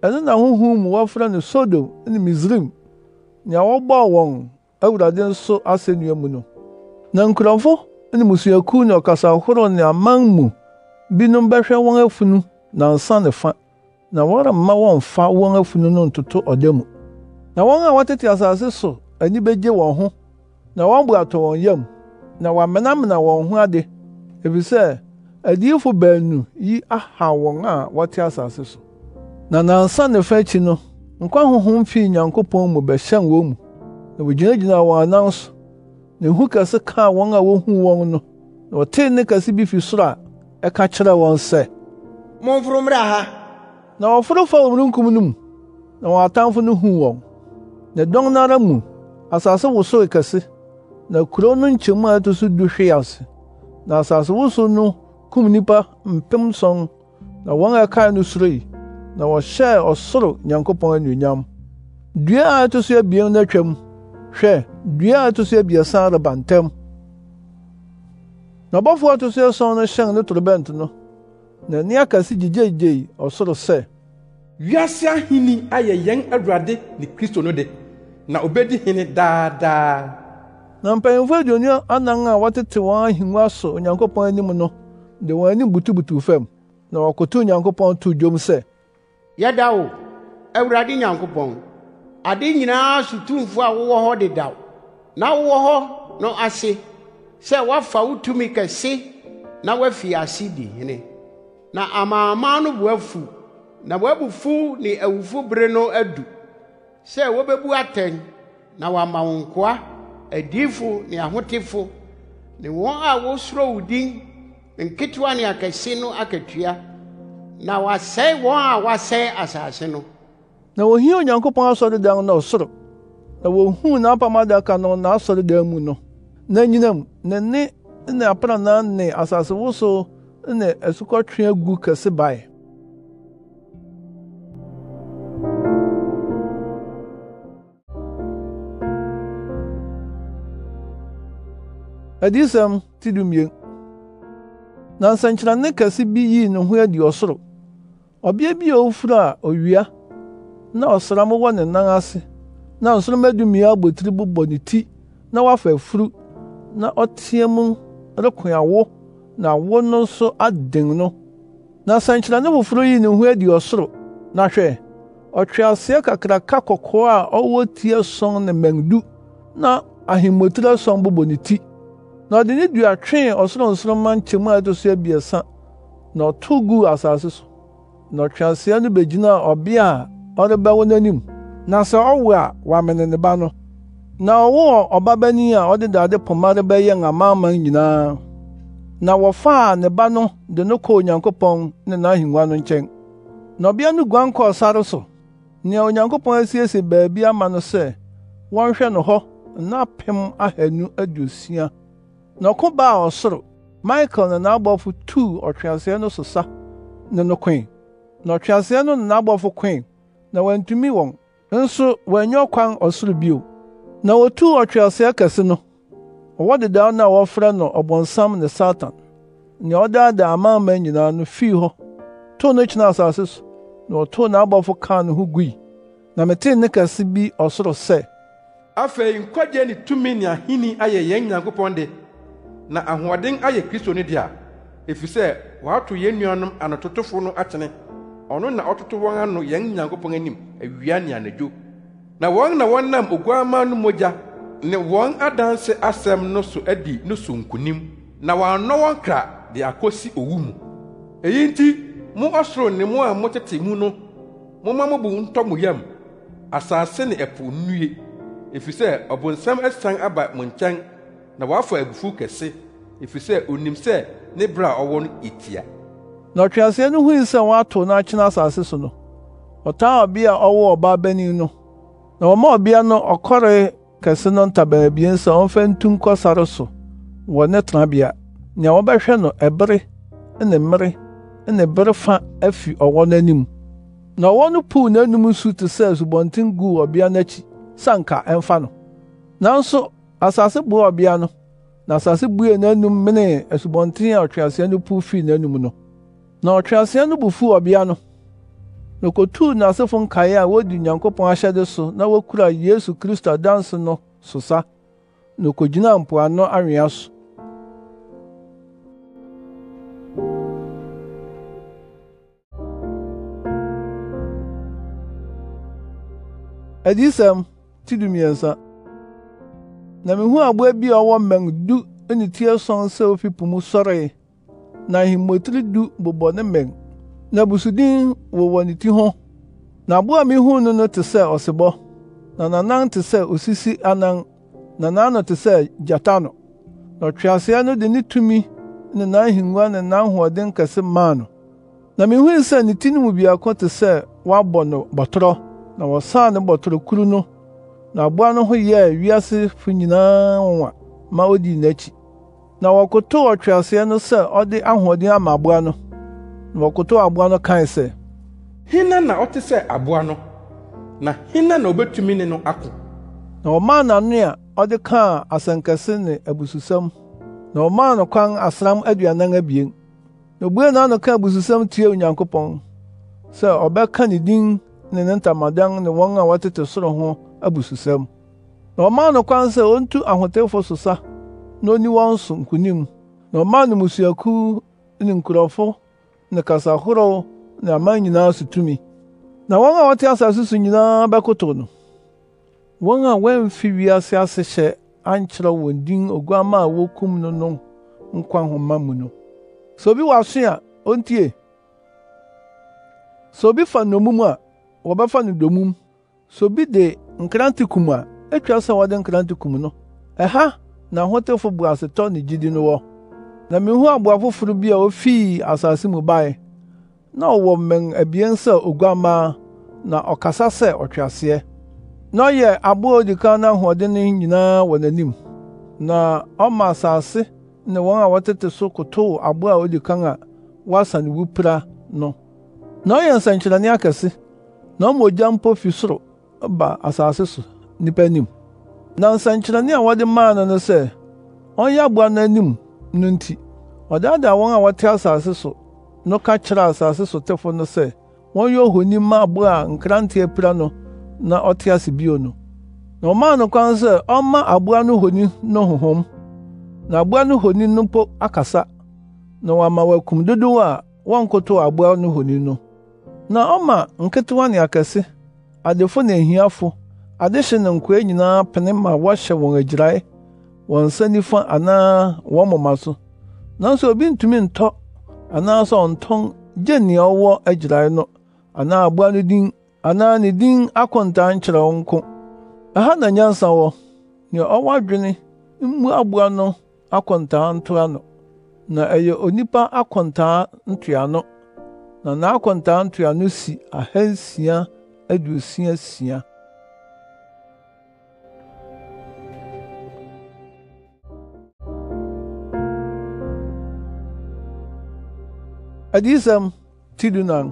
ɛno na honhom mu wɔfrɛ no sodom ne misraim nea wɔbɔɔ wɔn awurade nso asennua mu no na nkurɔfo ne mmusuakuw ne ɔkasahorow ne aman mu binom bɛhwɛ wɔn afunu na nsa ne fa na wɔremma wɔmfa wɔn afunu no ntoto ɔda mu na wɔn a wɔtete asase so ani begye wɔn ho na wɔn bo atɔ wɔn yam na wɔamenamena wɔn ho ade efisɛ adiyifo baanu yi aha wɔn a wɔte asase so na nansa ne fa akyi no nkwa honhom fii nyankopɔn mu bɛhyɛn wɔn mu na wogyinagyinaa wɔn anan so na ehu kɛse kaa wɔn a wohuu wɔn no na wɔtee nne kɛse bi fi soro a ɛka kyerɛɛ wɔn sɛ momforo mmra ha na wɔforo fa omununkum no mu na wɔn atamfo no huu wɔn na dɔn no ara mu asase wosoe kɛse na kurow no nkyɛmu a ɛto so du hwee ase na asase wosow no kum nnipa mpem sɔn na wɔn a ɛkae no suroe na wɔhyɛɛ ɔsoro nyankopɔn anuonyam dua a ɛto so abien no atwam hwɛ dua a ɛto so abiɛsa reba ntɛm na ɔbɔfo a ɛto so ason no hyɛn ne torobɛnto no na n'ani aka se gyegyeegyei ɔsoro sɛ wiase ahenni ayɛ yɛn awurade ne kristo no de na obedi hene daadaa na mpanyimfo aduonu anan a wɔtete wɔn ahengua so onyankopɔn anim no de wɔn anim butubutuw fam na wɔkotow onyankopɔn too dwom sɛ yɛda wo awurade nyankopɔn ade nyinaa sotumfo a wowɔ hɔ dedaw na wowɔ hɔ no ase sɛ woafa wo tumi kɛse na woafi ase di hene na amanaman no boafu na w'abufuw ne awufo bere no adu sɛ wobebu atɛn na wɔama wo nkoa adiyifo ne ahotefo ne wɔn a wosuro wo din nketewa ne akɛse no akatua na wɔasɛe wɔn a wɔasɛe asase no na wohia onyankopɔn asɔredan na ɔsoro na wohuu n'apam adaka no n'asɔredan mu no na nyinam ne ne ne aprannaa ne asasewosow ne asukɔtwe agu kɛse bae adiyisɛm ti dumien na nsɛnkyerɛnne kɛse bi yii ne ho adi ɔsoro ɔbea bi a ofuru a owia na ɔsram wɔ ne nan ase na nsoromma dumien abotiri bobɔ ne ti na wafa afuru na ɔteɛ mu reko awo na wo no nso aden no na nsɛnkyerɛnne foforo yi ne ho adi ɔsoro na hwɛ ɔtweaseɛ kakraka kɔkɔɔ a ɔwɔ ti ason ne mmɛndu na ahemmotiri ason bobɔ ne ti na ɔde ne dua twee ɔsoronsoromma nkyɛmu a ɛto so abiɛsa na ɔtow guu asase so na ɔtweaseɛ no begyinaa ɔbea a ɔrebɛwo n'anim na sɛ ɔwo a wɔamene ne ba no na ɔwoo ɔbabanin a ɔde dade poma rebɛyɛn amanaman nyinaa na wɔfaa ne ba no de no kɔɔ Onyankopɔn ne n'ahengua no nkyɛn. Na ɔbea no guan kɔɔ sare so, nea Onyankopɔn asiesie baabi ama no sɛ wɔnhwɛ no hɔ nna apem aduosia. Na ɔko baa ɔsoro, Michael ne n'abɔfo tuu ɔtweaseɛ no so sa ne no koe. Na ɔtweaseɛ no ne n'abɔfo koe, na wɔantumi wɔn, nso wɔanyɛ ɔkwan ɔsoro bio. Na wotuu ɔtweaseɛ kɛse no. wɔwɔ dedaw no a wɔfrɛ no ɔbɔnsam ne satan nea ɔdaadaa amanaman nyinaa no fii hɔ tow no kyinaa asase so na ɔtow n'abɔfo kaa ne ho gui na metee nne kɛse bi ɔsoro sɛ afei nkwagye ne tumi ne ahenni ayɛ yɛn nyankopɔn de na ahoɔden ayɛ kristo no dea efisɛ wɔato yɛn nuanom anototofo no akyene ɔno na ɔtoto wɔn ano yɛn nyankopɔn anim awia ne anadwo na wɔn na wɔnam oguamma no mogya ne wɔn adanse asɛm no so adi no so nkonim na wɔannɔ wɔn kra de akosi owu mu eyi nti mo ɔsoro ne mo a motete mu no momma mo bo ntɔ mo yam asase ne ɛpo nnue efisɛ ɔbonsam asian aba mo nkyɛn na wɔafa abufuw kɛse efisɛ onim sɛ ne bere a ɔwɔ no etia na ɔtweaseɛ no hui sɛ wɔato no asase so no ɔtan ɔbea a ɔwɔ ɔbaa bani no na wɔma ɔbea no ɔkɔre kɛse no ntaban abien sɛ ɔmfa ntu nkɔ sare so wɔ ne tenabea nea wɔbɛhwɛ no ɛbere ne mmere ne bere fa afi ɔwɔ no anim na ɔwɔ no puw n'anom nsu te sɛ asubɔnten guu ɔbea no akyi sɛ ɛmfa no nanso asase boa ɔbea no na asase bue n'anom menee asubɔnten a ɔtweaseɛ no puw fii n'anom no na ɔtweaseɛ no bu fuu ɔbea no na okotuu n'asefo nkae a wodi onyankopɔn ahyɛde so na wokura yesu kristo adanse no so sa na okogyinaa mpoano awea so adiyisɛm ti dumiɛnsa na mihuu aboa bi a ɔwɔ mmɛn du ne ti ason sɛ ofi po mu sɔree na ahemmotiri du bobɔ ne mmɛn na abusuden wowɔ ne ti ho na aboa a no no te sɛ ɔsebɔ na n'anan te sɛ osisi anan na n'ano te sɛ gyata no na ɔtweaseɛ no de ne tumi ne n'ahengua ne n'ahoɔden kɛse maa no na mihui sɛ ne ti no mu biako te sɛ wɔabɔ no bɔtɔrɔ na wɔsaa ne kuru no na aboa no ho yɛɛ wiasefo nyinaa nwa ma odi n'akyi na wɔkotow ɔtweaseɛ no sɛ ɔde ahoɔden ama aboa no na ɔkotow aboa no kae sɛ hena na ɔte sɛ aboa no na hena na obetumi ne no ako na ɔmaa n'ano a ɔde kaa asɛnkɛse ne abususɛm na ɔmaa no kwan asram aduanan abien na obuee n'ano kaa abususɛm tiee onyankopɔn sɛ ɔbɛka ne din ne ne ntamadan ne wɔn a wɔtete soro ho abususɛm na ɔmaa no kwan sɛ ontu ahotefo so na oni wɔn so nkonim na ɔmaa no musuaku ne nkurɔfo ne kasa ahorow ne aman nyinaa so tumi na wɔn a wɔte asase so nyinaa bɛkotow no wɔn a wɔamfi wiase ase hyɛ ankyerɛ wɔn din oguamma a wokum no no nkwa nhoma mu no sɛ obi wɔ aso a ontie sɛ obi fa nnommum a wɔbɛfa no domum sɛ obi de nkrante kum a etwa sɛ wɔde nkrante kum no ɛha na ahotefo bu asetɔ ne gyidi no wɔ na mihu aboa foforo bi a ofii asase mu bae na ɔwɔ mmɛn abien sɛ oguammaa na ɔkasa sɛ ɔtweaseɛ na ɔyɛ aboa a odi kan n'ahoɔden no nyinaa wɔ n'anim na ɔma asase ne wɔn a wɔtete so kotow aboa a odi kan a wasa ne wupira no na ɔyɛ nsɛnkyerɛnne akɛse na ɔma ogya mpo fi soro ba asase so nnipa anim na nsɛnkyerɛnne a wɔde maa no no sɛ ɔnyɛ aboa no anim no nti ɔdaadaa wɔn a wɔte asase so no ka kyerɛɛ asase so tefo no sɛ wɔnyɛ ohoni mma abo a nkrante apira no na ɔte ase bio no na ɔmaa no kwan sɛ ɔmma aboa no honi no honhom na aboa no honi no mpo akasa na wɔama wɔakum dodow a wɔnkotow aboa no honi no na ɔma nketewa ne akɛse adefo ne ahiafo adehye ne nkoa nyinaa pene ma wɔhyɛ wɔn agyirae wɔn nsa nifa anaa wɔn moma so nanso obi ntumi ntɔ anaasɛ ɔntɔn gye nea ɔwɔ agyirae no anaa aboa no din anaa ne din akontaa nkyerɛ wo nko ɛha na nyansa wɔ nea ɔwɔ adwene mmu aboa no akontaa ntoa no na ɛyɛ onipa ntoa no. na ntoa no si ahansia aduosia sia adịsam tidunang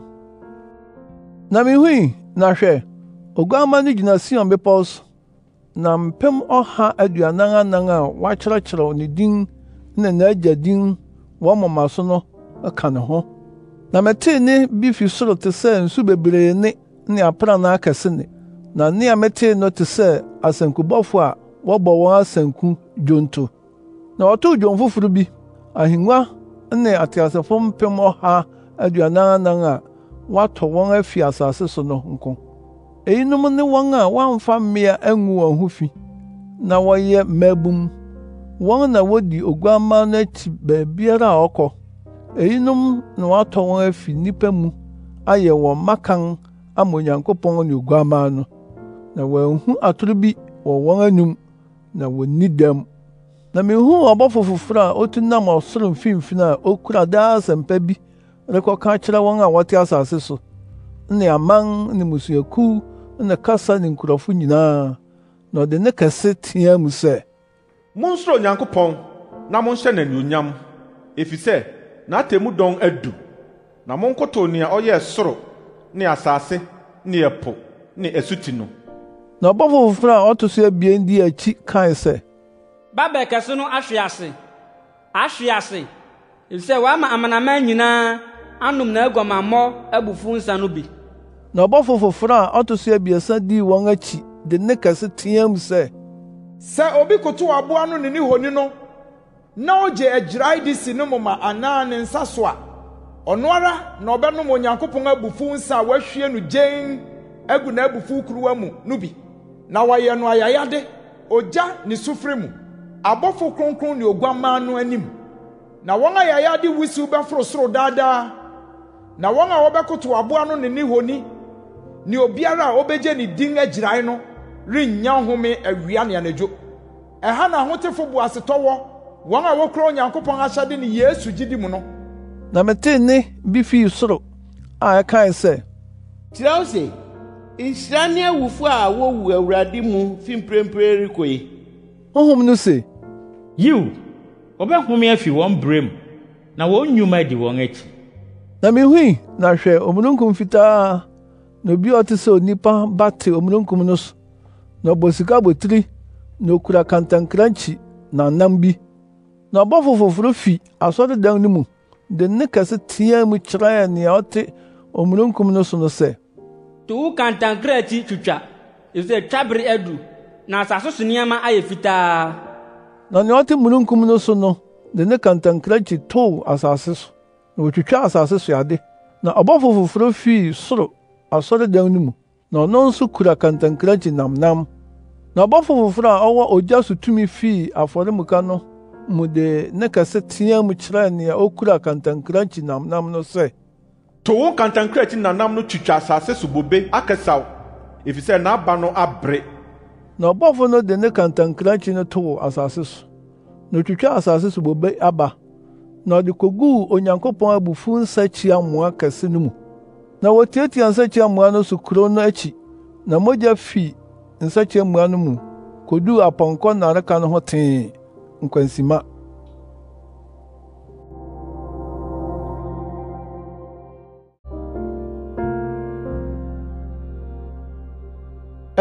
na mihui na hwɛ oguamma no gyina sion bepɔw na mpem ɔha aduanan anan a wakyerɛkyerɛw ne din ne n'agya din wɔn moma so no ka ne ho na metee ne bi fi soro te sɛ nsu bebree ne ne aprannaa kɛse ne na nea a metee no te sɛ asankubɔfo a wɔbɔ wɔn asanku dwonto na wɔtoo dwom foforo bi ahengua ne ateasefo mpem ɔha aduanan anan a wɔatɔ wɔn afi asase so no nko eyinom ne wɔn a wɔamfa mmea angu wɔn ho fi na wɔyɛ mmabum wɔn na wodi oguamma no akyi baabiara a ɔkɔ eyinom na wɔatɔ wɔn afi nnipa mu ayɛ wɔn makan ama onyankopɔn ne oguamma no na wɔanhu atoro bi wɔ wɔn anim na wɔn ni dɛm na mihuu ɔbɔfo foforo a otu nam ɔsoro mfimfini a okura daa asɛmpa bi rekɔka kyerɛ wɔn a wɔte asase so ne aman ne mmusuakuw ne kasa ne nkurɔfo nyinaa na ɔde ne kɛse teɛ mu sɛ monsoro onyankopɔn na monhyɛ n'anuonyam efisɛ n'atemmu dɔn adu na monkotow nea ɔyɛɛ soro ne asase ne ɛpo ne asuti no na ɔbɔfo foforo a ɔto so abien di akyi kae sɛ babel kɛse no ahwe ase ahwe ase efisɛ wama amanaman nyinaa na aguamammɔ abufuw nsa no bi na ɔbɔfo foforo a ɔto so abiɛsa dii wɔn akyi de nne kɛse sɛ obi aboa no ne ne honi no na ogye de si ne moma anaa ne nsa so a ɔno ara na ɔbɛnom onyankopɔn abufuw nsa a wahwie no gyen agu kuruwa na no ayayade ogya ne sufre abɔfo kronkron ne oguammaa no anim na wɔn a yɛayɛ ade wusiw bɛforo soro daadaa na wɔn a wɔbɛkoto aboa no ne ne honi ne obiara a obegye ne din agyirae no rennya nhome awia ne anadwo ɛha na ahotefo bo asetɔ wɔ wɔn a wɔkura onyankopɔn ahyɛde ne yesu gyidi mu no na metee nne bi fii soro a ɛkae sɛ kyerɛw se nhyira ne awufo a wowu awurade mu fi mprempren rekɔ yi Honhom no sɛ, “Yiw, wɔbɛhome afi wɔn brɛ mu, na wɔn nnwuma adi wɔn akyi.” Na mihui na hwɛ omununkum fitaa na obi a ɔte sɛ onipa ba te omununkum no so, na ɔbɔ sikabotiri na okura kantankrankyi na nam bi. Na ɔbɔfo foforo fi asɔredan no mu de nne kɛse teɛɛ mu kyerɛɛ nea ɔte omununkum no so no sɛ, “To wo kantankrakyi twitwa, efisɛ twabere adu.” na asase so nneɛma ayɛ fitaa na nea ɔte mununkum no so no de ne kantankrankyi tow asase so na wotwitwa asase so ade na ɔbɔfo foforo fii soro asɔredan no mu na ɔno nso kura kantankrankyi namnam na ɔbɔfo foforo a ɔwɔ ogya so tumi fii afɔremuka no mu de ne kɛse teɛ mu kyerɛɛ nea okura kantankrankyi namnam no sɛ to wo kantankrankyi namnam no twitwa asase so bobe akɛsaw efisɛ n'aba no abere na ɔbɔfo no de ne kantankrankyi no too asase so na otwitwaa asase so bobe aba na ɔde koguu onyankopɔn abufuw nsakyia mmoa kɛse no mu na wotiatia nsakyia mmoa no so kurow no akyi na mogya fi nsakyia mmoa no mu koduu apɔnkɔ nnareka no ho tee nkwansima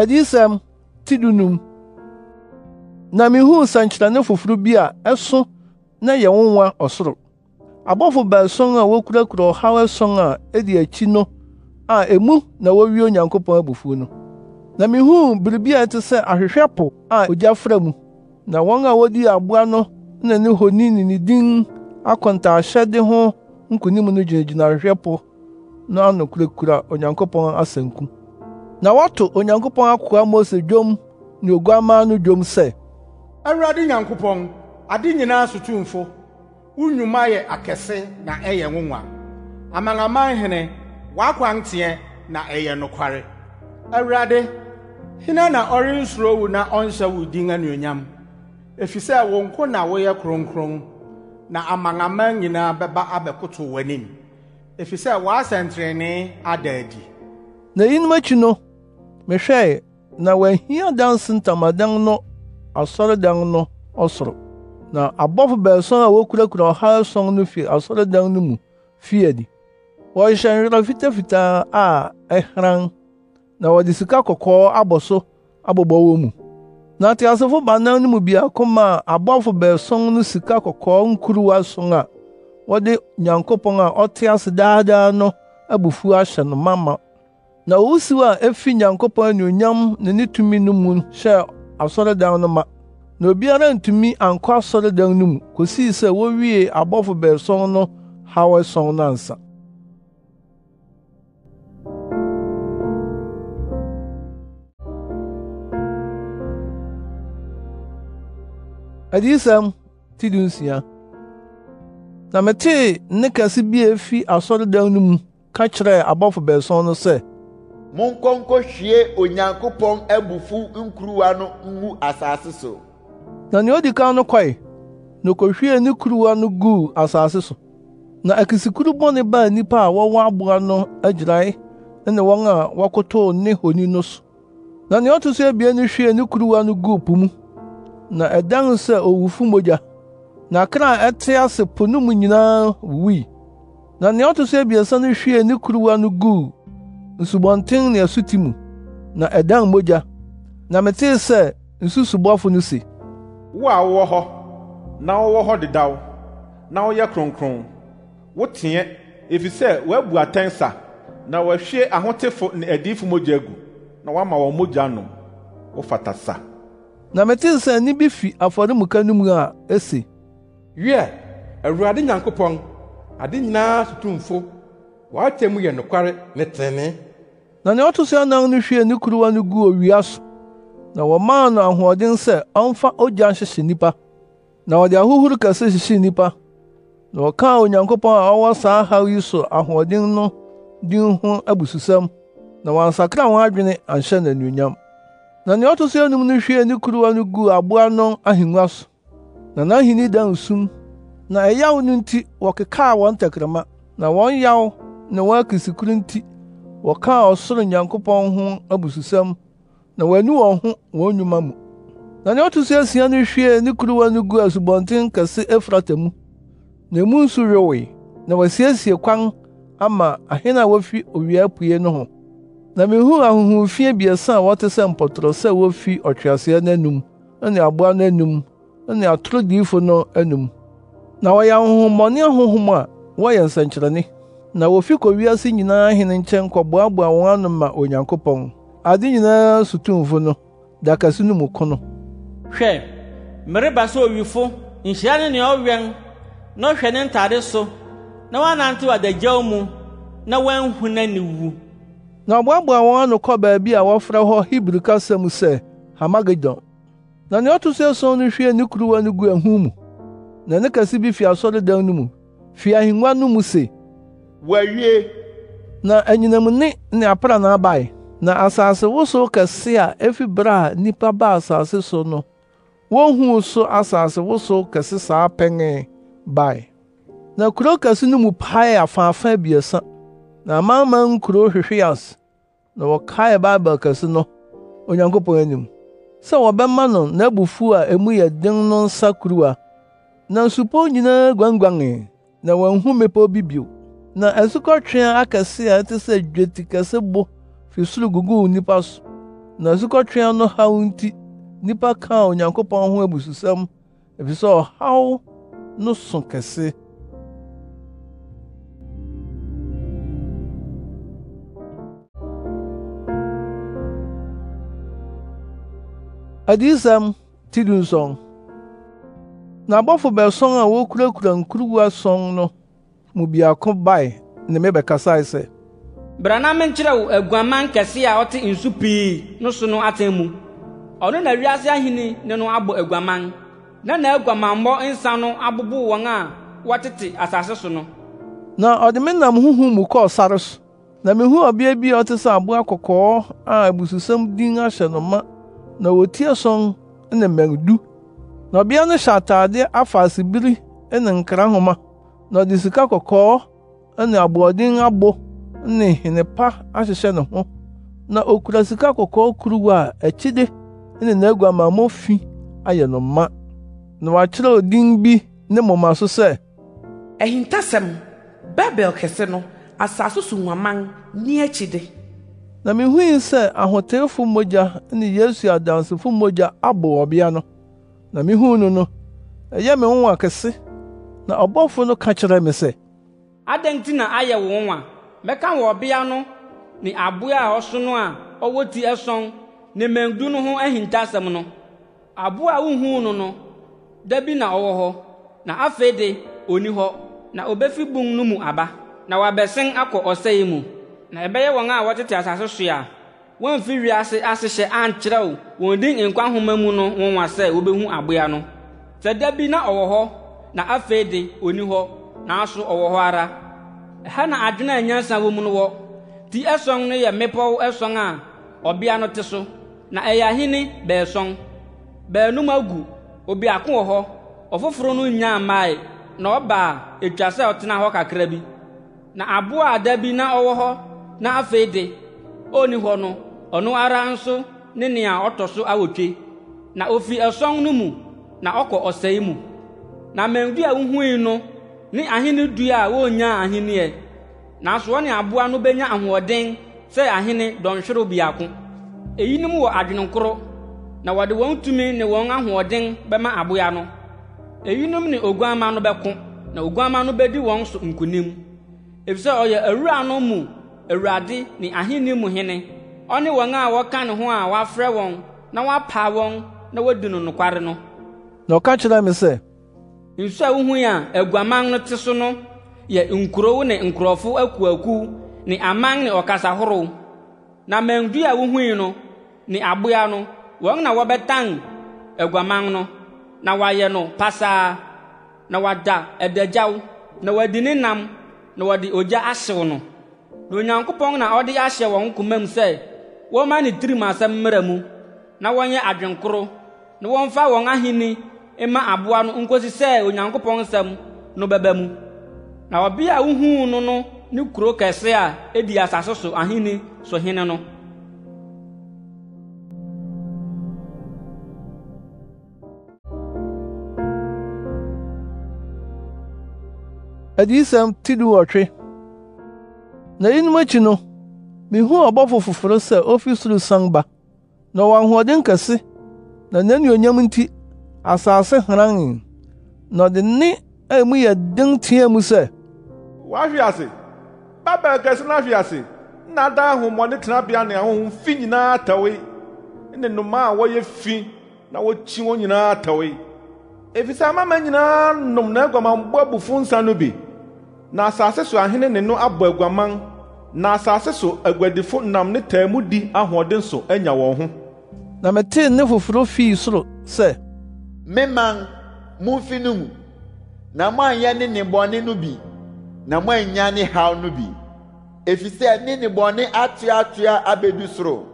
adiyisɛm ti dunum na mihuu nsɛnkyerɛnne foforo bi a ɛso na yɛ nwonwa ɔsoro abɔfo baason a wokurakura ɔhaw ason a ɛdi akyi no a emu na wowie onyankopɔn abufuw no na mihuu biribi a ɛte sɛ ahwehwɛ po a ogya fra mu na wɔn a wodii aboa no na ne honi ne ne din akɔntaahyɛde ho nkunim no gyinagyina ahwehwɛ po no ano kurakura onyankopɔn asanku na wɔato onyankopɔn akoa mose dwom ne oguamma no dwom sɛ awurade nyankopɔn ade nyinaa sotumfo wo nnwuma yɛ akɛse na ɛyɛ nwonwa amanaman hene w'akwanteɛ na ɛyɛ nokware awurade hena na ɔrensuro wo na ɔnhyɛ wo din anuonyam efisɛ wo nko na woyɛ kronkron na amanaman nyinaa bɛba abɛkoto w'anim efisɛ w'asɛnterɛnee ada adi na eyinom akyi no mehwɛe na wɔahia danse ntamadan no asɔredan no ɔsoro na abɔfo baason a wokurakura ɔha ason no fi asɔredan no mu fii adi wɔhyehyɛ nwera fitafitaa a ɛhran na wɔde sika kɔkɔɔ abɔ so abobɔ wɔ mu na teasefo baanan no mu biako maa abɔfo baason no sika kɔkɔɔ nkuruwa son a wɔde nyankopɔn a ɔte ase daadaa no abufuw ahyɛ no ma ma na owusiw a efi nyankopɔn nyonyam ne ne tumi no mu hyɛɛ asɔredan no ma na obiara ntumi ankɔ asɔredan no mu kosii sɛ wowie abɔfo bɛɛsɔn no haw ɛsɔn no ansa adiyisɛm ti du nsia na metee nne kɛse bi a efi asɔredan no mu ka kyerɛɛ abɔfo bɛɛsɔn no sɛ monkɔ nkɔhwie onyankopɔn abufu nkuruwa no ngu asase so na nea odi kan no kɔe na okohwiee ne kuruwa no guu asase so na akisikuru bɔne baa nnipa a wɔwɔ aboa no agyirae ne wɔn a wɔkotow ne honi no so na nea ɔto so abien no hwiee ne kuruwa no guu po mu na ɛdan sɛ owufo mogya na kra a ɛte ase po no mu nyinaa wuwui na nea ɔto so abiɛsa no hwiee ne kuruwa no guu nsubɔnten ne asuti mu na ɛdan mogya na metee sɛ nsusubɔfo no se wo a wowɔ hɔ na wowɔ hɔ dedaw na woyɛ kronkron woteɛ efisɛ woabu atɛn sa na wɔahwie ahotefo ne adiyifo mogya agu na woama wɔn mogya nom wofata sa na metee sɛ nne bi fi afɔremuka no mu a ese wiɛ awurade nyankopɔn ade nyinaa sotumfo w'atɛ mu yɛ nokware ne trenee na nea ɔto so anan no hwiee ne kuruwa no guu owia so na wɔmaa no ahoɔden sɛ ɔmfa ogya nhyehye nnipa na wɔde ahohuru kɛse hyehyee nnipa na wɔkaa onyankopɔn a ɔwɔ saa haw yi so ahoɔden no din ho abususɛm na wɔansakra wɔn adwene anhyɛ n'anuonyam na nea ɔto so anum no hwiee ne kuruwa no guu aboa no ahengua so na n'ahenni dan sum na ɛyaw no nti wɔkekaa wɔn tɛkrɛma na wɔn yaw ne wɔn akisikuru nti wɔkaa ɔsoro nyankopɔn ho abususɛm na wɔani wɔn ho wɔn nnwuma mu na nea ɔto so asia no hwiee ne kuruwa no guu asubɔnten kɛse efrata mu na emu nso yowee na wɔasiesie kwan ama ahene a wofi owia apue no ho na mihuu ahonhomfi abiɛsa a wɔte sɛ mpɔtorɔ sɛ wofi ɔtweaseɛ no anum ne aboa no anum ne atoro diyifo no anum na wɔyɛ ahonhommɔne ahonhom a wɔyɛ nsɛnkyerɛnne na wofi kɔ wiase nyinaa hene nkyɛn kɔboaboa wɔn ano ma onyankopɔn ade nyinaa sotumfo no dakaso no mu ko no hwɛ mereba sɛ owifo nhyira ne nea ɔwɛn na ɔhwɛ ne ntade so na wɔanantew adagyaw mu na wɔanhu n'aniwu na ɔboaboa wɔn ano kɔ baabi a wɔfrɛ hɔ hebri kasa mu sɛ hamagedon na nea ɔto so ason no hwie ne kuruwa no gu ahum mu na ne kɛse bi fi asɔredan no mu fi ahengua no mu se wɔawie na anyinam ne ne aprana abae na asase wosow kɛse a efi bere a nnipa baa asase so no wohu so asase wosow kɛse saa pɛnee bae na kurow kɛse no mu paee afaafa abiɛsa na amanaman kuro hwehwee ase na wɔkaee baibul kɛse no onyankopɔn anim sɛ wɔbɛma no n'abufuw a emu yɛ den no nsa kuruwa na nsupɔw nyinaa guanguanee na wɔanhu mmepɔw bi bio na asukɔtweaa akɛse a ɛte sɛ dweti kɛse bo fi soro guguu nnipa so na asukɔtweaa no haw nti nnipa kaa onyankopɔn ho abususɛm efisɛ ɔhaw no so kɛse adiyisɛm ti du nsɔn na abɔfo bɛsɔn a wokurakura nkuruwa sɔn no mu biako bae ne mebɛkasae sɛ bra na menkyerɛ wo aguaman kɛse a ɔte nsu pii no so no atɛn mu ɔno na wiase ahenni ne no abɔ aguaman na n'aguamammɔ nsa no abobo wɔn a wɔtete asase so no na ɔde me nam huhu mu kɔɔ sare so na mihu ɔbea bi a ɔte sɛ aboa kɔkɔɔ a abususɛm din ahyɛ no ma na wotie sɔn ne mmɛn du na ɔbea no hyɛ atade afaasebiri ne nkra nhoma na ɔde sika kɔkɔɔ ne aboɔden abo ne hene pa ahyehyɛ ne ho na okura sika kɔkɔɔ kuruwa a akyide ne n'aguamammɔ fi ayɛ no ma na wakyerɛw din bi ne moma so sɛ ahintasɛm babel kɛse no asase so nwaman ne akyide na mihui sɛ ahoteefo mogya ne yesu adansefo mogya abɔ ɔbea no na mihuu no no ɛyɛ me nwonwa kɛse na ɔbɔfo no ka kyerɛɛ me sɛ adɛn nti na ayɛ wo nwa mɛka wɔ ɔbea no ne aboa a ɔso no a ɔwɔ ti ɛsɔn ne mmɛndu no ho ahintasɛm no aboa a wunhuu no no da bi na ɔwɔ hɔ na afei de onni hɔ na obefi bun no mu aba na wabɛsen akɔ ɔsɛe mu na ɛbɛyɛ wɔn a wɔtete asase so a wɔmfi wiase ahyehyɛ ankyerɛw wɔn din nkwa nhoma mu no nwonwa sɛ wobehu aboa no sɛ da bi na ɔwɔ hɔ na afei de onni hɔ nanso ɔwɔ hɔ ara ha na adwene a nyansa wɔ mu no wɔ ti ɛsɔn no yɛ mmepɔw ɛsɔn a ɔbea no te so na ɛyɛ ahene bɛɛsɔn baanum agu obiako wɔ hɔ ɔfoforo no nyaa mmae na ɔba a etwa sɛ ɔtena hɔ kakra bi na aboa a bi na ɔwɔ hɔ na afei de onni hɔ no ɔno ara nso ne nea ɔtɔ so awotwe na ofi ɛsɔn no mu na ɔkɔ ɔsɛe mu na mmɛndu a wuhui no ne ahene dua a wonyaa ahenneɛ nanso wɔne aboa no benya ahoɔden sɛ ahene dɔnhwere biako eyinom wɔ adwenenkoro na wɔde wɔn tumi ne wɔn ahoɔden bɛma aboa no eyinom ne oguamma no bɛko na oguamma no bedi wɔn so nkonim efisɛ ɔyɛ awura no mu awurade ne ahene mu hene ɔne wɔn a wɔka ne ho a wɔafrɛ wɔn na wapa wɔn na wɔadi no nokware no na ɔka kyerɛ me sɛ nsu a wohu a aguaman no te so no yɛ nkurow ne nkurɔfo akuaku ne aman ne ɔkasa horow na mandu a wohui no ne aboa no wɔn na wɔbɛtan aguaman no na wɔayɛ no pasaa na wɔada adagyaw na wɔadi ne nam na wɔde ogya ahyew no na onyankopɔn na ɔde ahyɛ wɔn komam sɛ wɔmma ne tirim asɛm mmara mu na wɔnyɛ adwenkoro na wɔmfa wɔn ahenni ma abụọ no nkosi sɛ onyankopɔn nsɛm no bɛba mu na ɔbea a wuhuu no no ne kuro kɛse a edi asase so ahenni so hene no adiyisɛm ti di wɔtwe na yinom akyi no mihuu ɔbɔfo foforo sɛ ofi soro san ba na ɔwɔ ahoɔden kɛse na n'anuonyam nti asase hran e na ɔde nne emu yɛ den teɛ mu sɛ wahwe ase babel kɛse no ase na ada ahụ ahomɔne tenabea ne ahohom fi nyinaa atɛwe ne nnoma a wɔyɛ fi na w'ọchi wọn nyinaa atɛwe efisɛ amama nyinaa nom na aguamanbɔ abufo nsa no na asase so ahene ne no abɔ na asase so aguadifo nam ne taa mu di ahoɔden so anya wɔn ho na metee nne foforo fii soro sɛ memang mumfi no mu na anya ne nnebɔne no bi na moannya ne haw no bi efisɛ ne nnebɔne atoatoa abedu soro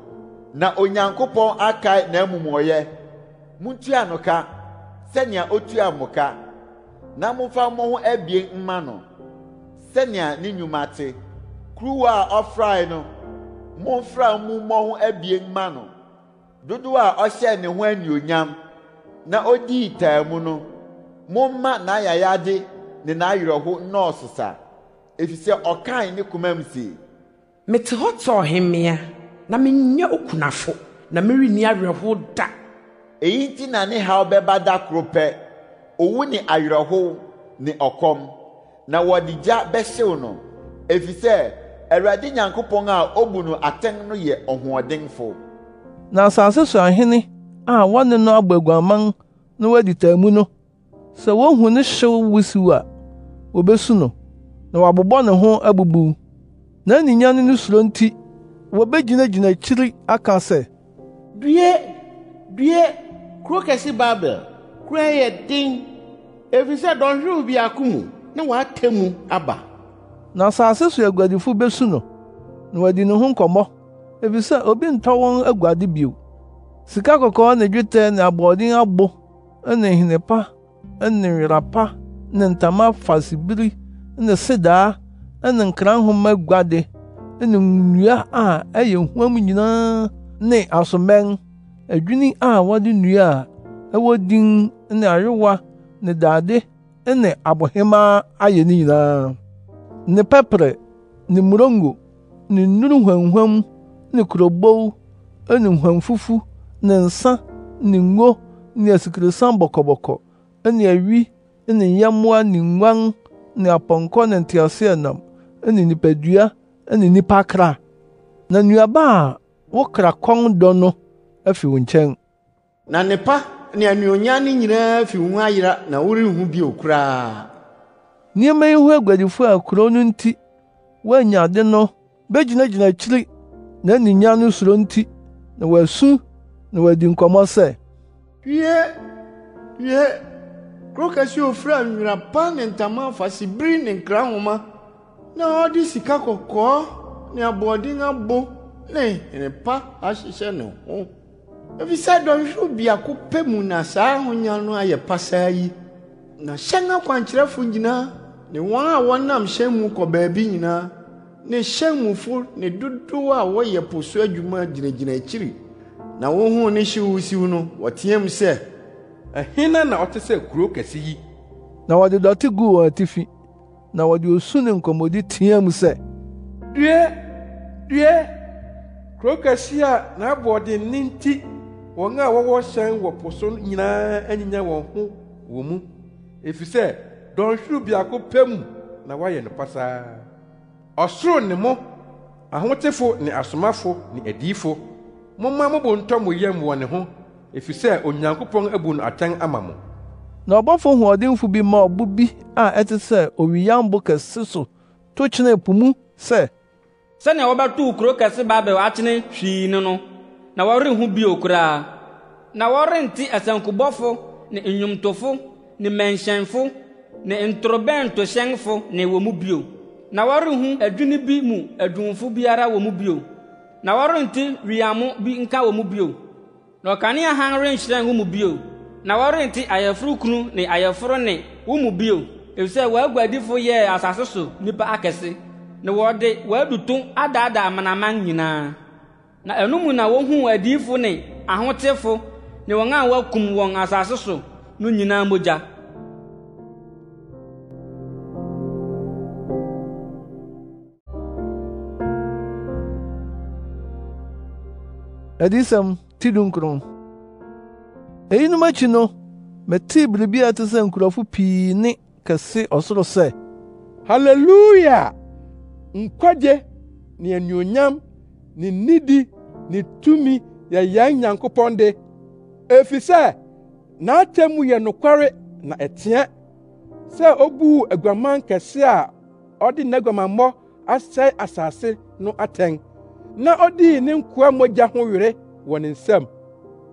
na onyankopɔn akae n'amumɔyɛ muntua no ka sɛnea otua mo ka na momfa mo ho abien mma no sɛnea ne nnwuma te kuruwa a ɔfrae no momfra mu mmɔ ho abien mma no dodoɔ a ɔhyɛɛ ne ho anuonyam na odii taa mu no momma n'ayayade ne n'ayerɛho nnɔɔso sa efisɛ ɔkae ne koma mu se mete hɔ tɔɔ hemmea na menyɛ okunafo na merenni awerɛho da eyi nti na ne haw bɛba da koro pɛ owu ne awerɛhow ne ɔkɔm na wɔde gya bɛhyew no efisɛ awurade nyankopɔn a obu no atɛn no yɛ ɔhoɔdenfo na asase so ahene a wɔne no abɔ na wɔadi mu no sɛ wohu ne hyew wusiw a wobesu no na wɔabobɔ ne ho abubuw n'aninya ne no suro nti wobegyinagyina akyiri aka sɛ due due kuro kɛse babel kuro yɛ den efisɛ dɔnhwerew biako mu na wɔatemu aba na asase so aguadifo besu no na wɔadi ne ho nkɔmmɔ efisɛ obi ntɔ wɔn aguade bio Sika kɔkɔɔ ne dwetɛ ne aboɔden abo ne nhenepa ne nwera pa ne ntama fasebiri ne sedaa ne nkra nhoma guade ne nnua a ɛyɛ huam nyinaa ne asomɛn, adwinni a wɔde nnua a ɛwɔ din ne ayowa ne dade ne abohemaa ayɛ ne nyinaa, ne pɛprɛ ne mmorongo ne nnuru huamhuam ne kurobow ne huamfufu ne nsa ne ngo ne asikresiam bɔkɔbɔkɔ ne awi ne nyɛmmoa ne nguan ne apɔnkɔ ne nteaseɛnam ne nipadua ne nnipa kra na nnuaba a wo kra kɔn dɔ no afi wo nkyɛn na nepa ne anuonyam no nyinaa fi wo ho ayera na worenhu bio koraa nneɛma yi ho aguadifo a kurow no nti woanya ade no begyinagyina akyiri n'aninya no suro nti na wɔasu na wɔadi nkɔmmɔ sɛ wie wie kuro kɛse ofura nwera pa ne ntama afasebiri ne nkra nhoma na ɔde sika kɔkɔɔ ne aboɔden abo ne nnepa ahyehyɛ ne ho efisɛ dɔnhwere biako pɛ mu na saa ahonya no ayɛ pasaa yi na hyɛn akwankyerɛfo nyinaa ne wɔn a wɔnam hyɛn mu kɔ baabi nyinaa ne hyɛn mufo ne dodow a wɔyɛ po adwuma gyinagyina akyiri na wohuu ne hyew siw no wɔteɛm sɛ ɛhena na ɔte sɛ kurow kɛse yi na wɔde dɔte guu wɔn atifi na wɔde osu ne nkɔmmɔdi teɛm sɛ due due kurow kɛse a n'aboɔden ne nti wɔn a wɔwɔ hyɛn wɔ po so nyinaa anyinya wɔn ho wɔ mu efisɛ dɔnhwerew biako pɛ mu na wɔayɛ no pasaa ɔsoro ne mo ahotefo ne asomafo ne adiyifo momma mobo ntɔ mo yam wɔ ne ho efisɛ onyankopɔn abu no atɛn ama mo na ɔbɔfo hoɔdenfo bi ma ɔbo bi a ɛte sɛ owiyambo kɛse so to kyenee po mu sɛ sɛnea kuro kɛse hwii ne no na wɔrenhu bio koraa na wɔrente asankubɔfo ne nnwomtofo ne mmɛnhyɛnfo ne ntorobɛntohyɛnfo ne wɔ mu bio na wɔrenhu adwene bi mu adwumfo biara wɔ na wɔrente wiamo bi nka wɔ mu bio na ɔkanea hann renhyerɛn wo mu bio na wɔrente ayɛforo kunu ne ayɛforo ne wo mu bio efisɛ wɔagu adifo yɛɛ asase so nnipa akɛse na wɔde wɔaduto adaadaa amanaman nyinaa na ɛno mu na wohuu adiifo ne ahotefo ne wɔn a wɔakum wɔn asase so no nyinaa mogya adiyisɛm tidu nkron eyinom akyi no metee biribi a te sɛ nkurɔfo pii ne kɛse ɔsoro sɛ haleluya nkwagye ne anuonyam ne nidi ne tumi yɛ yɛn nyankopɔn de na n'atemmu yɛ nokware na ɛteɛ sɛ obuu aguaman kɛse a ɔde n'aguamammɔ asɛe asase no atɛn na ọ odii ne nkoa mogya ho were wɔ ne nsam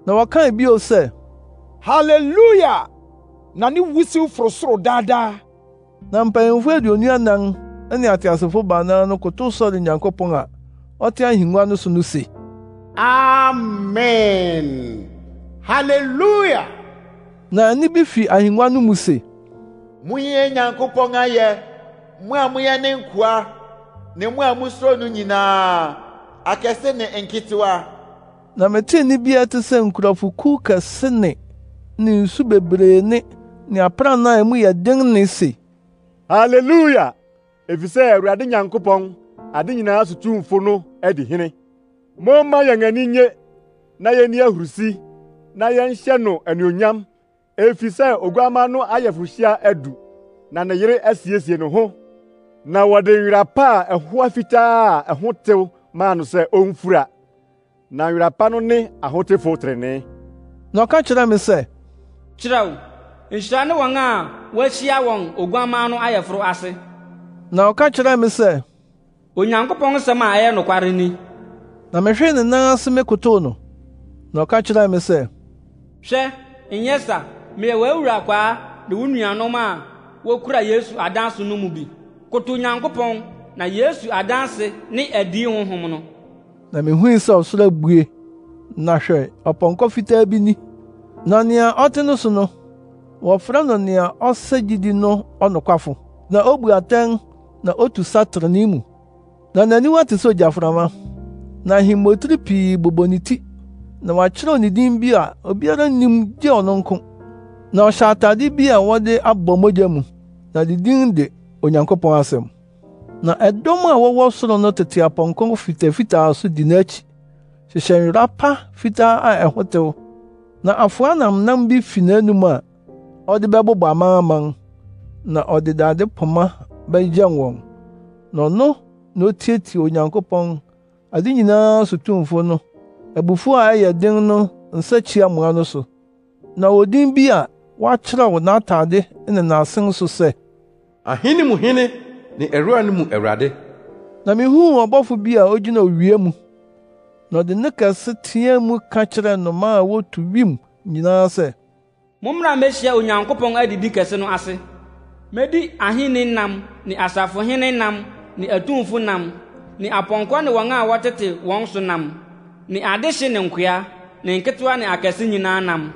na wɔkae bio sɛ haleluya na ne wusiw foro soro daadaa na mpanyimfo aduonu anan ne ateasefo baanan no kotow sɔre nyankopɔn a ɔte ahengua no so no se amen haleluya na nne bi fi ahengua no mu se monyɛ nyankopɔn ayɛ mo a moyɛ ne nkoa ne mo a musuro no nyinaa akɛse ne nketewa na metee nne bia te sɛ nkurɔfokuw kɛse ne ne nsu bebree ne ne aprannaa a mu yɛ den ne se haleluya efisɛ awurade nyankopɔn ade nyinaa sotumfo no adi hene momma yɛn ani nye na yenni ahurusi na yɛnhyɛ no anuonyam efisɛ oguamma no ayɛforohyia adu na ne yere asiesie ne ho na wɔde nwera pa a ɛhoa fitaa a ɛho tew maa no sɛ ɔmfura na nwera pa no ne ahotefo trenee na ɔka m sị. sɛ kyerɛw nhyira ne wɔn a wɔahyia wọn oguaman no ayɛforo ase na ɔka kyerɛ me sɛ onyankopɔn nsɛm a ɛyɛ nokware ni na mehwee ne nan ase me no na ɔka kyerɛɛ me sɛ hwɛ nyɛ sa meyɛ w'awura kwaa ne wo nuanom a wokura yesu adanso no mu bi koto onyankopɔn na yesu adanse ne adi honhom no na mihuu sɛ ɔsoro abue na hwɛ ɔpɔnkɔ fitaa bi ni na nea ɔte no so no wɔfrɛ no nea ɔsɛ gyidi no ɔnokwafo na obu atɛn na otu satrene mu na n'aniwa te sɛ ogyaframa na ahemmotiri pii bobɔ ne ti na wɔakyerɛw ne din bi a obiara nnim gye ɔno nko na ɔhyɛ atade bi a wɔde abɔ mogya mu na ne din de onyankopɔn asɛm na ɛdɔm a wɔwɔ soro no tete apɔnkɔ fitafitaa so di n'akyi hyehyɛ nwera pa fitaa a ɛho na afoa namnam bi fi n'anum a ɔde bɛbobɔ amanaman na ɔde dade poma bɛgyɛn wɔn na ɔno na otietie onyankopɔn ade nyinaa so tumfo no abufuw a ɛyɛ den no nsakyiamoa no so na odin bi a wakyerɛw n'atade ne n'asen so sɛ ahene mu hene ne ɛwura no mu Awurade. Na mihuu ɔbɔfo bi a ogyina owia mu, na ɔde ne kɛse teɛ mu ka kyerɛɛ nnomaa a wotu wim nyinaa sɛ, Mommra mmehyia Onyankopɔn adidi kɛse no ase. Medi ahenni nam ne asafohene nam ne atumfo nam ne apɔnkɔ ne wɔn a wɔtete wɔn so nam ne adehye ne nkoa ne nketewa ne akɛse nyinaa nam.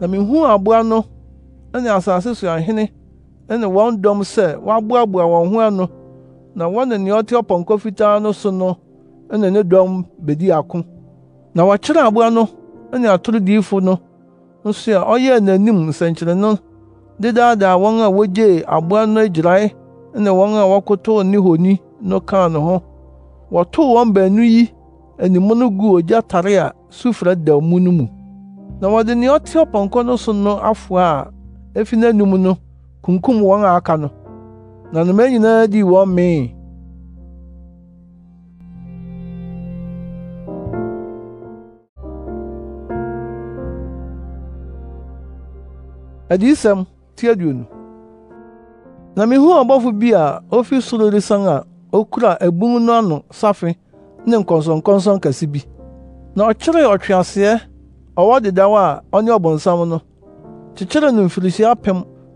Na mihuu aboa no ne asase so ahene ne wɔn dɔm sɛ wɔaboaboa wɔn ho ano na wɔne nea ɔte ɔpɔnkɔ fitaa no so no ne dɔm bedi ako na wɔkyerɛ aboa no ne atorodiifo no nso a ɔyɛɛ n'anim nsɛnkyerɛnne dedaadaa wɔn a wogyee aboa no agyirae wɔn a ne honi no kaa ne ho wɔtoo wɔn baanu yi animu no ogya tare a sufrɛ da mu no mu na wɔde nea ɔte ɔpɔnkɔ no so no kunkum wɔn a aka no na nnomaa nyinaa dii wɔn mee adiyisɛm ti na mihuu ɔbɔfo bi a ofi soro resian a okura abun no ano safe ne nkɔnsɔnkɔnsɔn kɛse bi na ɔkyeree ɔtweaseɛ ɔwɔ dedaw a ɔne ɔbonsam no kyekyeree no mfirihyia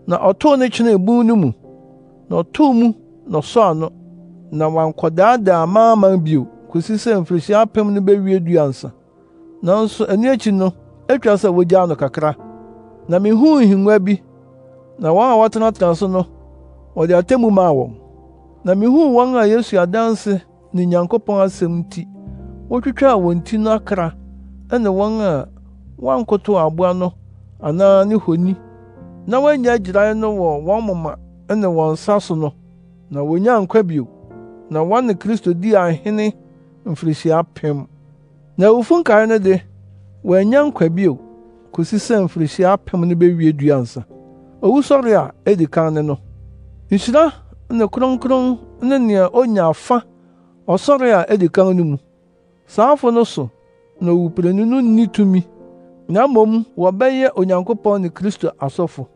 na ɔtoo ne kyenee bun no mu na ɔtoo mu na ɔsɔɔ ano na wankɔdaadaa amanaman bio kosi sɛ mfirihyia apem no dua nsa nanso ɛno akyi no atwa sɛ wogyaa no kakra na mihuu nhengua bi na wɔn a wɔtenatena so no wɔde atemmu maa wɔn na mihuu wɔn a yesu adanse ne nyankopɔn asɛm nti wotwitwaa wɔn ti no akra ɛne wɔn a wɔankotow aboa no anaa ne honi na woanya agyirae no wɔ wɔn moma ne wɔn nsa so no na wonyaa nkwa bio na wɔne kristo di ahene mfirihyia pem na awufo nkae no de wɔanya nkwa bio kosi sɛ mfirihyia apem no bewie duansa owusɔre a edi kan ne no nhyira ne kronkron ne nea onya afa ɔsɔre a edi kan no mu saafo no so na owuprenu no nni tumi na mmom wɔbɛyɛ onyankopɔn ne kristo asɔfo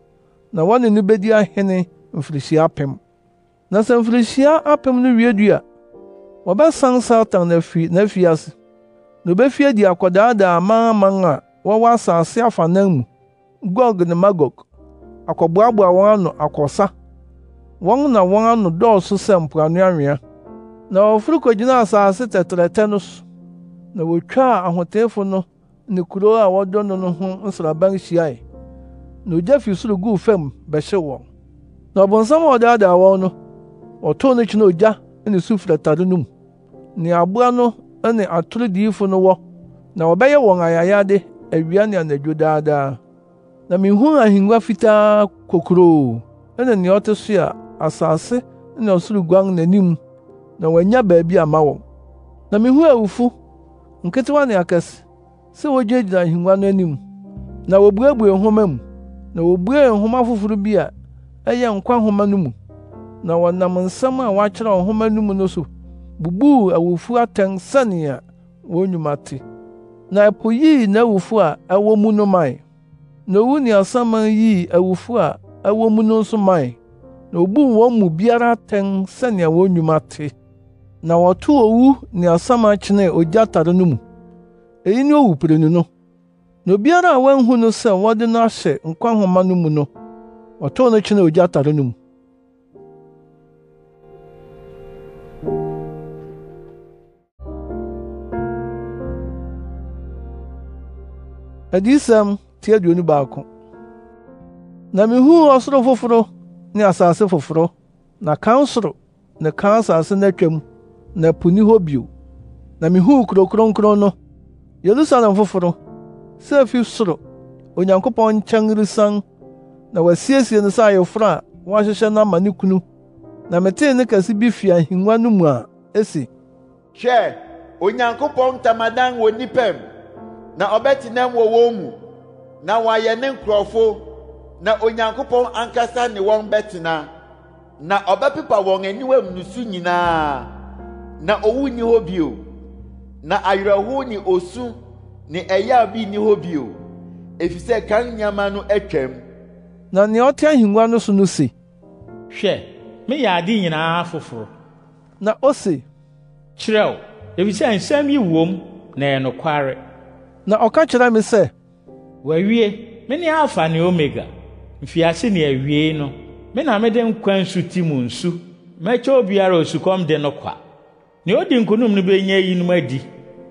na wɔne no bedi ahene mfirihyia apem na sɛ mfirihyia apem no wiedu a wɔbɛsan satan n'afi ase na obefi adi akɔdaadaa amanaman a wɔwɔ asase afanan mu gog ne magog akɔboaboa wɔn ano akɔsa wɔn na wɔn ano dɔɔso sɛ mpoano anwea na wɔforo kogyinaa asase tɛtrɛtɛ no so na wotwaa ahoteefo no ne kurow a wɔdɔ no no ho nsraban hyiae na ogya fi soro guu fam bɛhyew wɔn na ɔbonsam a ɔdaadaa wɔn no wɔtoo no kyena ogya ne su firi atade no mu nea aboa no ne atoro diyifo no wɔ na wɔbɛyɛ wɔn ayayade awia ne anadwo daadaa na mihuu ahengua fitaa kokuroo ɛne nea ɔte so a asase ne ɔsoro guan n'anim na wɔanya baabi ama wɔn na mihuu awufo nketewa ne akɛse sɛ wogyinagyina ahengua no anim na wobuebue nhoma mu na wobuee nhoma foforo bi a ɛyɛ nkwa nhoma no mu na wɔnam nsɛm a wɔakyerɛ nhoma no mu no so bubuu awufo atɛn sɛnea wɔn nnwuma te na ɛpo yii n'awufo a ɛwɔ mu no mae na owu ne asaman yii awufo a ɛwɔ mu no nso mae na obuu wɔn mu biara atɛn sɛnea wɔn nnwuma te na wɔtoo owu ne asaman kyenee ogya tare no mu eyi ne owupirenu no na obiara a wanhu no sɛ wɔde no ahyɛ nkwa nhoma no mu no ɔtɔw no kyena ogya atare no mu adiyisɛm ti baako na mihuu ɔsoro foforo ne asase foforo na kan soro ne kan asase n'atwam na po ni hɔ bio na mihuu kurow kronkron no yerusalem foforo sɛ afi soro onyankopɔn nkyɛn resian na wasiesie no sɛ ayeforo a wɔahyehyɛ no ama ne kunu na metee ne kɛse bi fi ahengua no mu a esi hwɛ onyankopɔn ntamadan wɔ nnipa mu na ɔbɛtenam wɔ wɔn mu na wɔayɛ ne nkurɔfo na onyankopɔn ankasa ne wɔn bɛtena na ɔbɛpepa wɔn aniwam nusu nyinaa na owu nni hɔ bio na awerɛhow ne osu ne ɛyɛ bi nni hɔ bio efisɛ kan nneɛma no atwam na nea ɔte ahengua no so no se hwɛ meyɛ ade nyinaa foforo na o ose kyerɛw efisɛ nsɛm yi wom na ɛyɛ nokware na ɔka kyerɛ me sɛ wɔawie me ne alfa ne omega mfiase ne awiei no me na mede nkwa nsu ti mu nsu mɛkyɛ obiara osukɔm de no kwa nea odi nkonom no benya yinom adi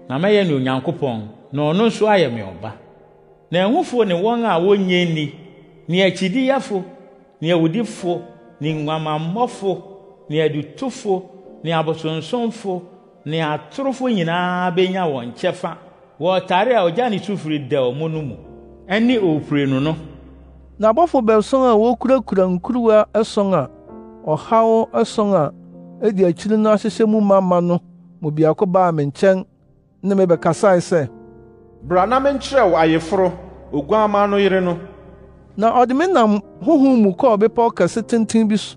na mɛyɛ ne onyankopɔn na ɔno nso ayɛ me ɔba na ɛhufo ne wɔn a wonnye nni ne akyidiyɛfo ne awudifo ne nguamammɔfo ne adutufo ne abosonsomfo ne atorofo nyinaa wɔn kyɛfa a ɔgya ne sufiri da no mu ɛne no na abɔfo a wokurakura nkuruwa ɛson a ɔhaw ɛson a edi akyiri no ahyehyɛ mu ma ma no biako baa me nkyɛn ne bra na menkyerɛ wo ayeforo oguamma no yere no na ọ ɔde me nam honhom mu kɔɔ bepɔw kɛse tenten bi so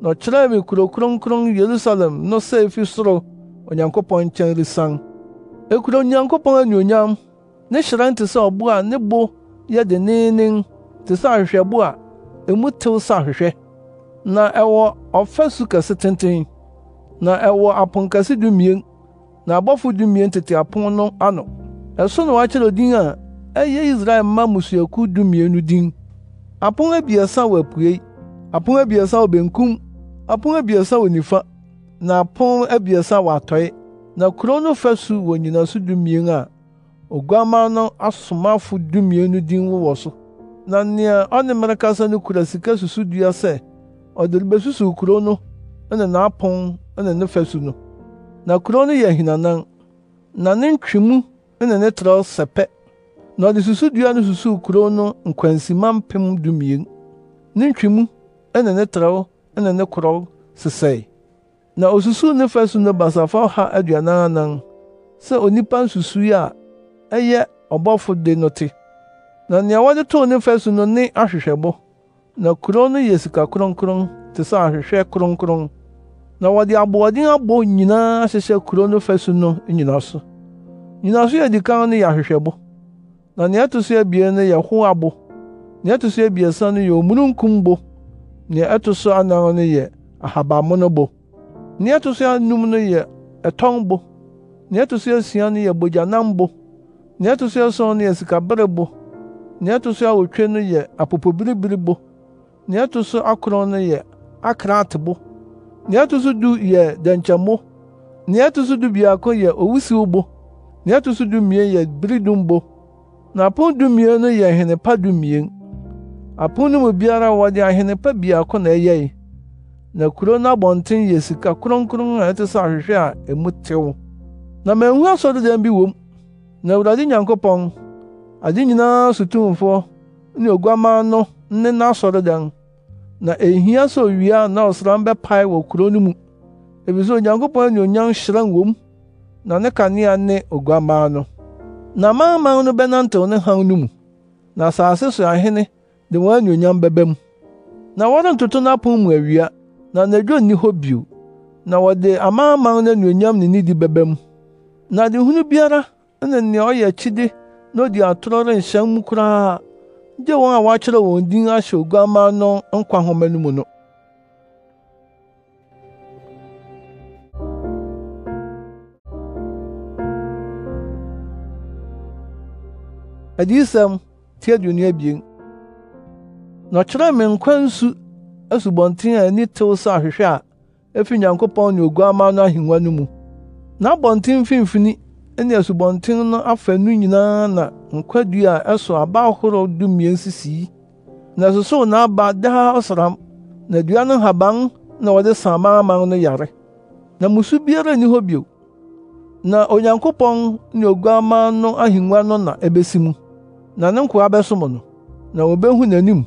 na ọ ɔkyerɛɛ me kurow kronkron yerusalem no sɛ efi soro onyankopɔn nkyɛn resian ekuro onyankopɔn anuonyam ne hyerɛn te sɛ ɔbo a ne bo yɛ denneennen te sɛ ahwehwɛbo a emu tew sɛ ahwehwɛ na ɛwɔ ɔfasu kɛse tenten na ɛwɔ aponkɛse dumien na abɔfo dumien tete apon no ano ɛso na wɔakyerɛ din a ɛyɛ Israel mma mmusuakuw dumienu din apon abiɛsa wɔ apuei apon abiɛsa wɔ benkum apon abiɛsa wɔ nifa na apon abiɛsa wɔ atɔe na kuro no fasu wɔ nnyinaso dumien a oguamma no asomafo dumienu din wowɔ so na nea ɔne mmere kasa no kura sika susudua sɛ ɔde rebesusuw kuro no ne n'apon ne ne fasu no na kurow no yɛ ahinanan na ne ntwemu na ne trɛw sɛpɛ na ɔde susudua no susuw kurow no nkwansima mpem dumien ne ntwemu na ne trɛw na ne korɔw sesɛe na osusuw ne fasu no basafa ɔha aduanan anan sɛ onipa nsusui a ɛyɛ ɔbɔfo de no te na nea wɔde too ne fasu no ne ahwehwɛbo na kurow no yɛ sika kronkron te sɛ ahwehwɛ kronkron na wɔde aboɔden abɔ nyinaa ahyehyɛ kurow no fasu no nyina so nnyinaso yɛ adi kan no yɛ ahwehwɛbo na nea ɛto so abien no yɛ ho abo nea ɛto so abiɛsa no yɛ omununkum bo nea ɛto so anan no yɛ ahabammono bo nea ɛto so anum no yɛ ɛtɔn bo nea ɛto so asia no yɛ bogyanam bo nea ɛto so ason no yɛ sikabere bo nea ɛto so awotwe no yɛ apopobiribiri bo nea ɛto so akron no yɛ akraate bo nea ɛto so du yɛ dɛnkyɛmo nea ɛto so du biako yɛ owusiw bo Nea ɛto so dumien yɛ bere dumbo, na apon dumien no yɛ ahene pa dumien. Apon no mu biara wɔde ahene pa baako na ɛyɛe. Na kuro no abɔnten yɛ sika kronkron a ɛte sɛ ahwehwɛ a emu tew. Na manhu asɔredan bi wɔ mu. Na Awurade Nyankopɔn, ade nyinaa so tumfo ne Oguamma no ne n'asɔredan. Na ehia sɛ owia anaa ɔsram bɛpae wɔ kuro no mu, efisɛ Onyankopɔn anuonyam hyerɛn wɔ mu na ne kanea ne oguamma no na amanaman no bɛnantew ne hann no mu na asase so ahene de wɔn anuonyam bɛbɛ mu na wɔrentoto n'apon mu awia na n'adwo nni hɔ bio na wɔde amanaman no anuonyam ne nidi bɛbɛ mu na adehunu biara ne nea ɔyɛ akyide na odi atoro renhyɛn mu koraa gye wɔn a wɔakyerɛ wɔn din ahyɛ oguamma no nkwa nhoma no mu no adiyisɛm ti aduonu abien na ɔkyerɛɛ me nkwa nsu asubɔnten a ani tew sɛ ahwehwɛ a efi nyankopɔn ne oguamma no ahengua no mu na abɔnten mfimfini ne asubɔnten no afaanu nyinaa na nkwadua a ɛso aba ahorow dumien sisii na ɛsosow n'aba daa ɔsram na dua no haban na wɔde sa amanaman no yare na musu biara nni hɔ bio na onyankopɔn ne oguamma no ahengua no na ebesi mu na ne nkwa bɛsom no na wobehu n'anim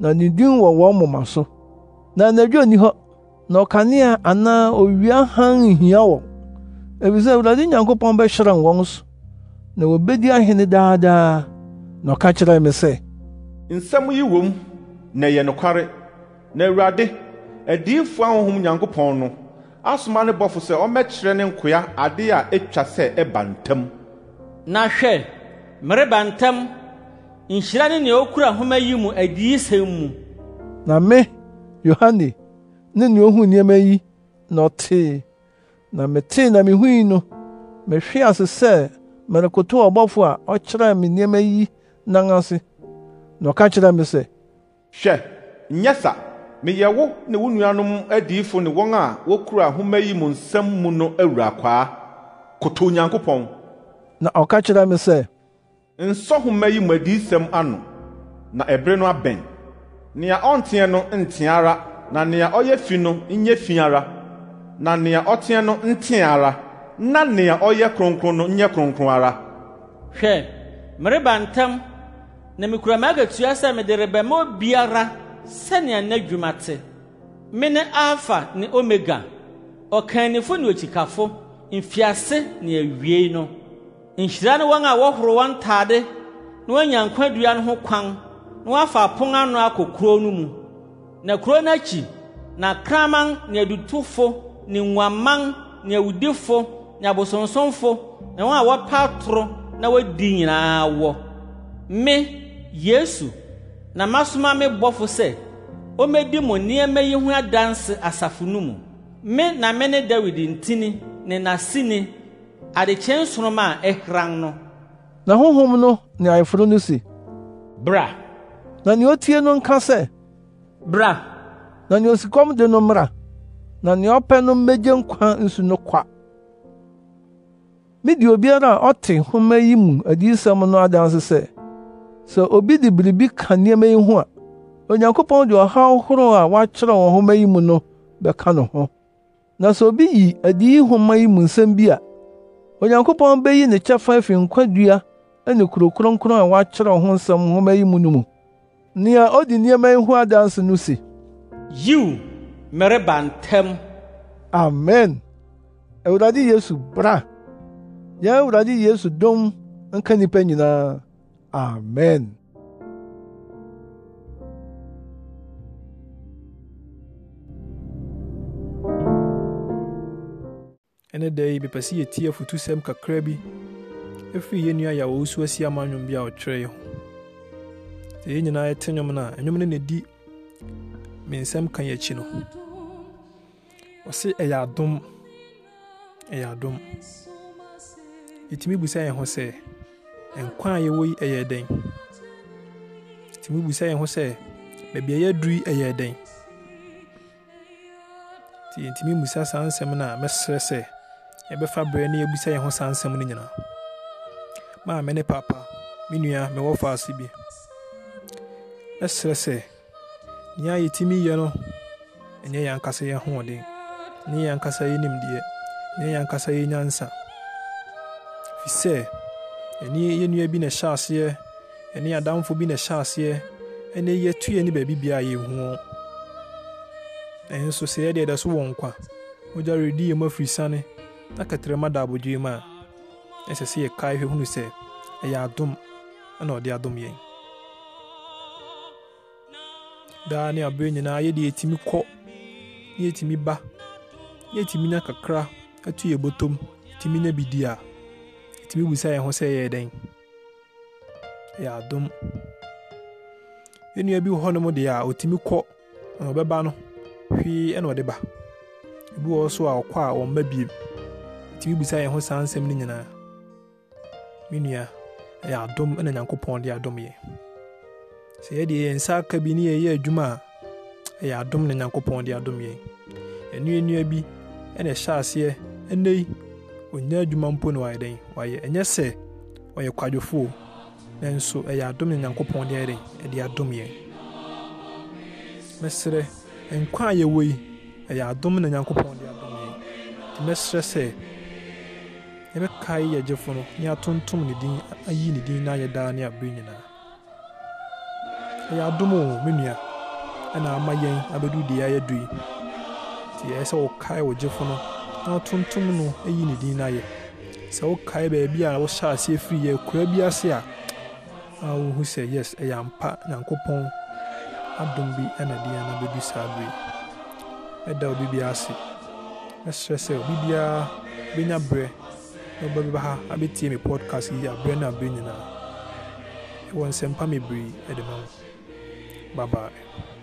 na ne din wɔ wɔn moma so na anadwo nni hɔ na ɔkanea anaa owia hann nhia wɔn efisɛ awurade nyankopɔn bɛhyerɛn wɔn so na wobedi ahene daadaa na ɔka kyerɛɛ me sɛ nsɛm yi wom na ɛyɛ nokware na awurade adiyifoɔ ahonhom nyankopɔn no asoma ne bɔfo sɛ ɔmmɛkyerɛ ne nkoa ade a etwa sɛ ɛba ntam na hwɛ mereba ntam nhyira ne nea okura nhoma yi mu adiyisɛm mu na me yohane ne nea ohuu nneɛma yi na ɔtee na metee na mihui no mehwee ase sɛ merekotow ɔbɔfo a ɔkyerɛɛ me nneɛma yi nan ase na ɔka kyerɛɛ me sɛ hwɛ nyɛ sa meyɛ wo ne wo nuanom adiyifo ne wɔn a wokura nhoma yi mu nsɛm mu no awura kwaa koto onyankopɔn na ɔka kyerɛɛ me sɛ nsɔhoma yi mu adiisɛm anọ na ebere no abɛn nea ɔnteɛ no nteɛ ara na nea ɔyɛ fi no nyɛ fi ara na nea ɔteɛ no nteɛ ara na nea ɔyɛ kronkron no nyɛ kronkron ara hwɛ mereba ntam na mikura m'agatua sɛ mede rebɛma obiara sɛnea n'adwuma te me ne alfa ne omega ɔkanifo ne okyikafo mfiase ne awiei no nhyira ne wɔn a wɔhoro wɔn ntade na wɔanya nkwadua no ho kwan na wɔafa apon ano akɔ kurow no mu na kurow no akyi na kraman ne adutufo ne nguaman ne awudifo ne abosonsomfo ne wɔn a wɔpa atoro na wɔadi nyinaa wɔ me yesu na masoma me bɔfo sɛ ommedi mo nneɛma yi ho adanse asafo no mu me na me ne dawid ntini ne n'asini adekyee nsoroma a ɛhran no na honhom no ne ayeforo no se bra na nea otie no nka sɛ bra na nea osikɔm de no mmra na nea ɔpɛ no mmegye nkwa nsu no kwa midi obiara a ɔte nhoma yi mu adiyisɛm no adanse sɛ sɛ obi de biribi ka nneɛma yi ho a onyankopɔn de ɔhaw horow a wɔakyerɛw wɔ nhoma yi mu no bɛka no ho na sɛ obi yi adi nhoma yi mu nsɛm bi a onyankopɔn beyi ne kyɛfa afi nkwadua ne kuro kronkron a wɔakyerɛw ho nsɛm nhoma yi mu no mu nea odi nneɛma yi ho adanse no se yiw mereba ntɛm amen awurade yesu bra yɛn awurade yesu dom nka nnipa nyinaa amen ɛne da yi mepɛ sɛ yɛtie afotusɛm kakra bi ɛfiri yɛ nua yɛa wɔwɔ so asi ama nnwom bi a ɔtwerɛ yɛ ho sɛ yɛn nyinaa ɛte nnwom no a ɛnwom no nɛdi me nsɛm ka yɛakyi no ɔse ɛyɛ adom ɛyɛ adom yɛtumi busa yɛn ho sɛ nkwa a yɛwɔ yi ɛyɛ dɛn yɛtumi busa yɛn ho sɛ baabi a yɛaduru yi ɛyɛ dɛn nti yɛntumi mmusa saa nsɛm no a mɛsrɛ sɛ yɛbɛfa berɛ na yɛbisa yɛn ho saa nsɛm no nyinaa maame ne papa me nua mewɔ faase bi ɛserɛ sɛ nea yɛtumi yɛ no ɛnyɛ yɛn ankasa yɛ hoɔden ɛnyɛ yɛn ankasa yɛ nimdeɛ ɛnyɛ yɛn ankasa yɛ nyansa fi sɛ ɛne yɛ nua bi na ɛhyɛ aseɛ ɛne adamfo bi na ɛhyɛ aseɛ ɛne yɛtuyɛ ne baabi bia yɛhu ɛnso sɛ yɛdeɛ ɛda so wɔ nkwa wogya redi yɛ mu afiri sane na kɛtrɛma da abodwoe mu a ɛsɛ sɛ yɛkae hwɛ hunu sɛ ɛyɛ adom ɛna ɔde adom yɛn daa ne aberɛ nyinaa yɛde yɛtumi kɔ ne yɛtumi ba ne yɛtumi nya kakra atu yɛ bɔtɔm yɛtumi nya bidi a yɛtumi busa yɛn ho sɛ ɛyɛ dɛn ɛyɛ adom yɛnua bi wɔ hɔnom deɛ a ɔtumi kɔ na ɔbɛba no hwee ɛna ɔde ba ebi wɔ so a ɔkɔ a ɔmma biem nti bibisa yɛn ho saa nsɛm no nyinaa me nua ɛyɛ adom na nyankopɔn de adom yɛ sɛ yɛde yɛn nsa aka bi ne yɛyɛ adwuma a ɛyɛ adom na nyankopɔn de adom yɛn ɛnuanua bi ɛna ɛhyɛ aseɛ ɛnɛ yi ɔnya adwuma mpo na wayɛ dɛn wayɛ ɛnyɛ sɛ ɔyɛ kwadwofoɔ nanso ɛyɛ adom na nyankopɔn de ayɛ dɛn ɛde adom yɛn mɛsrɛ nkwa a yɛwɔ yi ɛyɛ adom na nyankopɔn de adom yɛn mɛsrɛ sɛ yɛbɛkae yɛ gyefo no ne atontom ne din ayi ne din na ayɛ daa ne abere nyinaa ɛyɛ adom o me nua abedu ama ya abɛdu deɛ ayɛ du yi nti ɛyɛ sɛ wokae wo gyefo no na atontom no ayi ne din na ayɛ sɛ wokae baabi a wohyɛ ase firi yɛ kura bi ase a a wohu sɛ yes ɛyɛ na nyankopɔn adum bi ɛna deɛ no bɛdu saa bere ɛda obi bi ase ɛsrɛ sɛ obi biara bɛnya berɛ na ɔba bi ba ha abɛtie me podcast yi aberɛ no aberɛ nyinaa ɛwɔ nsɛmpa mebree ɛde ma Bye bye.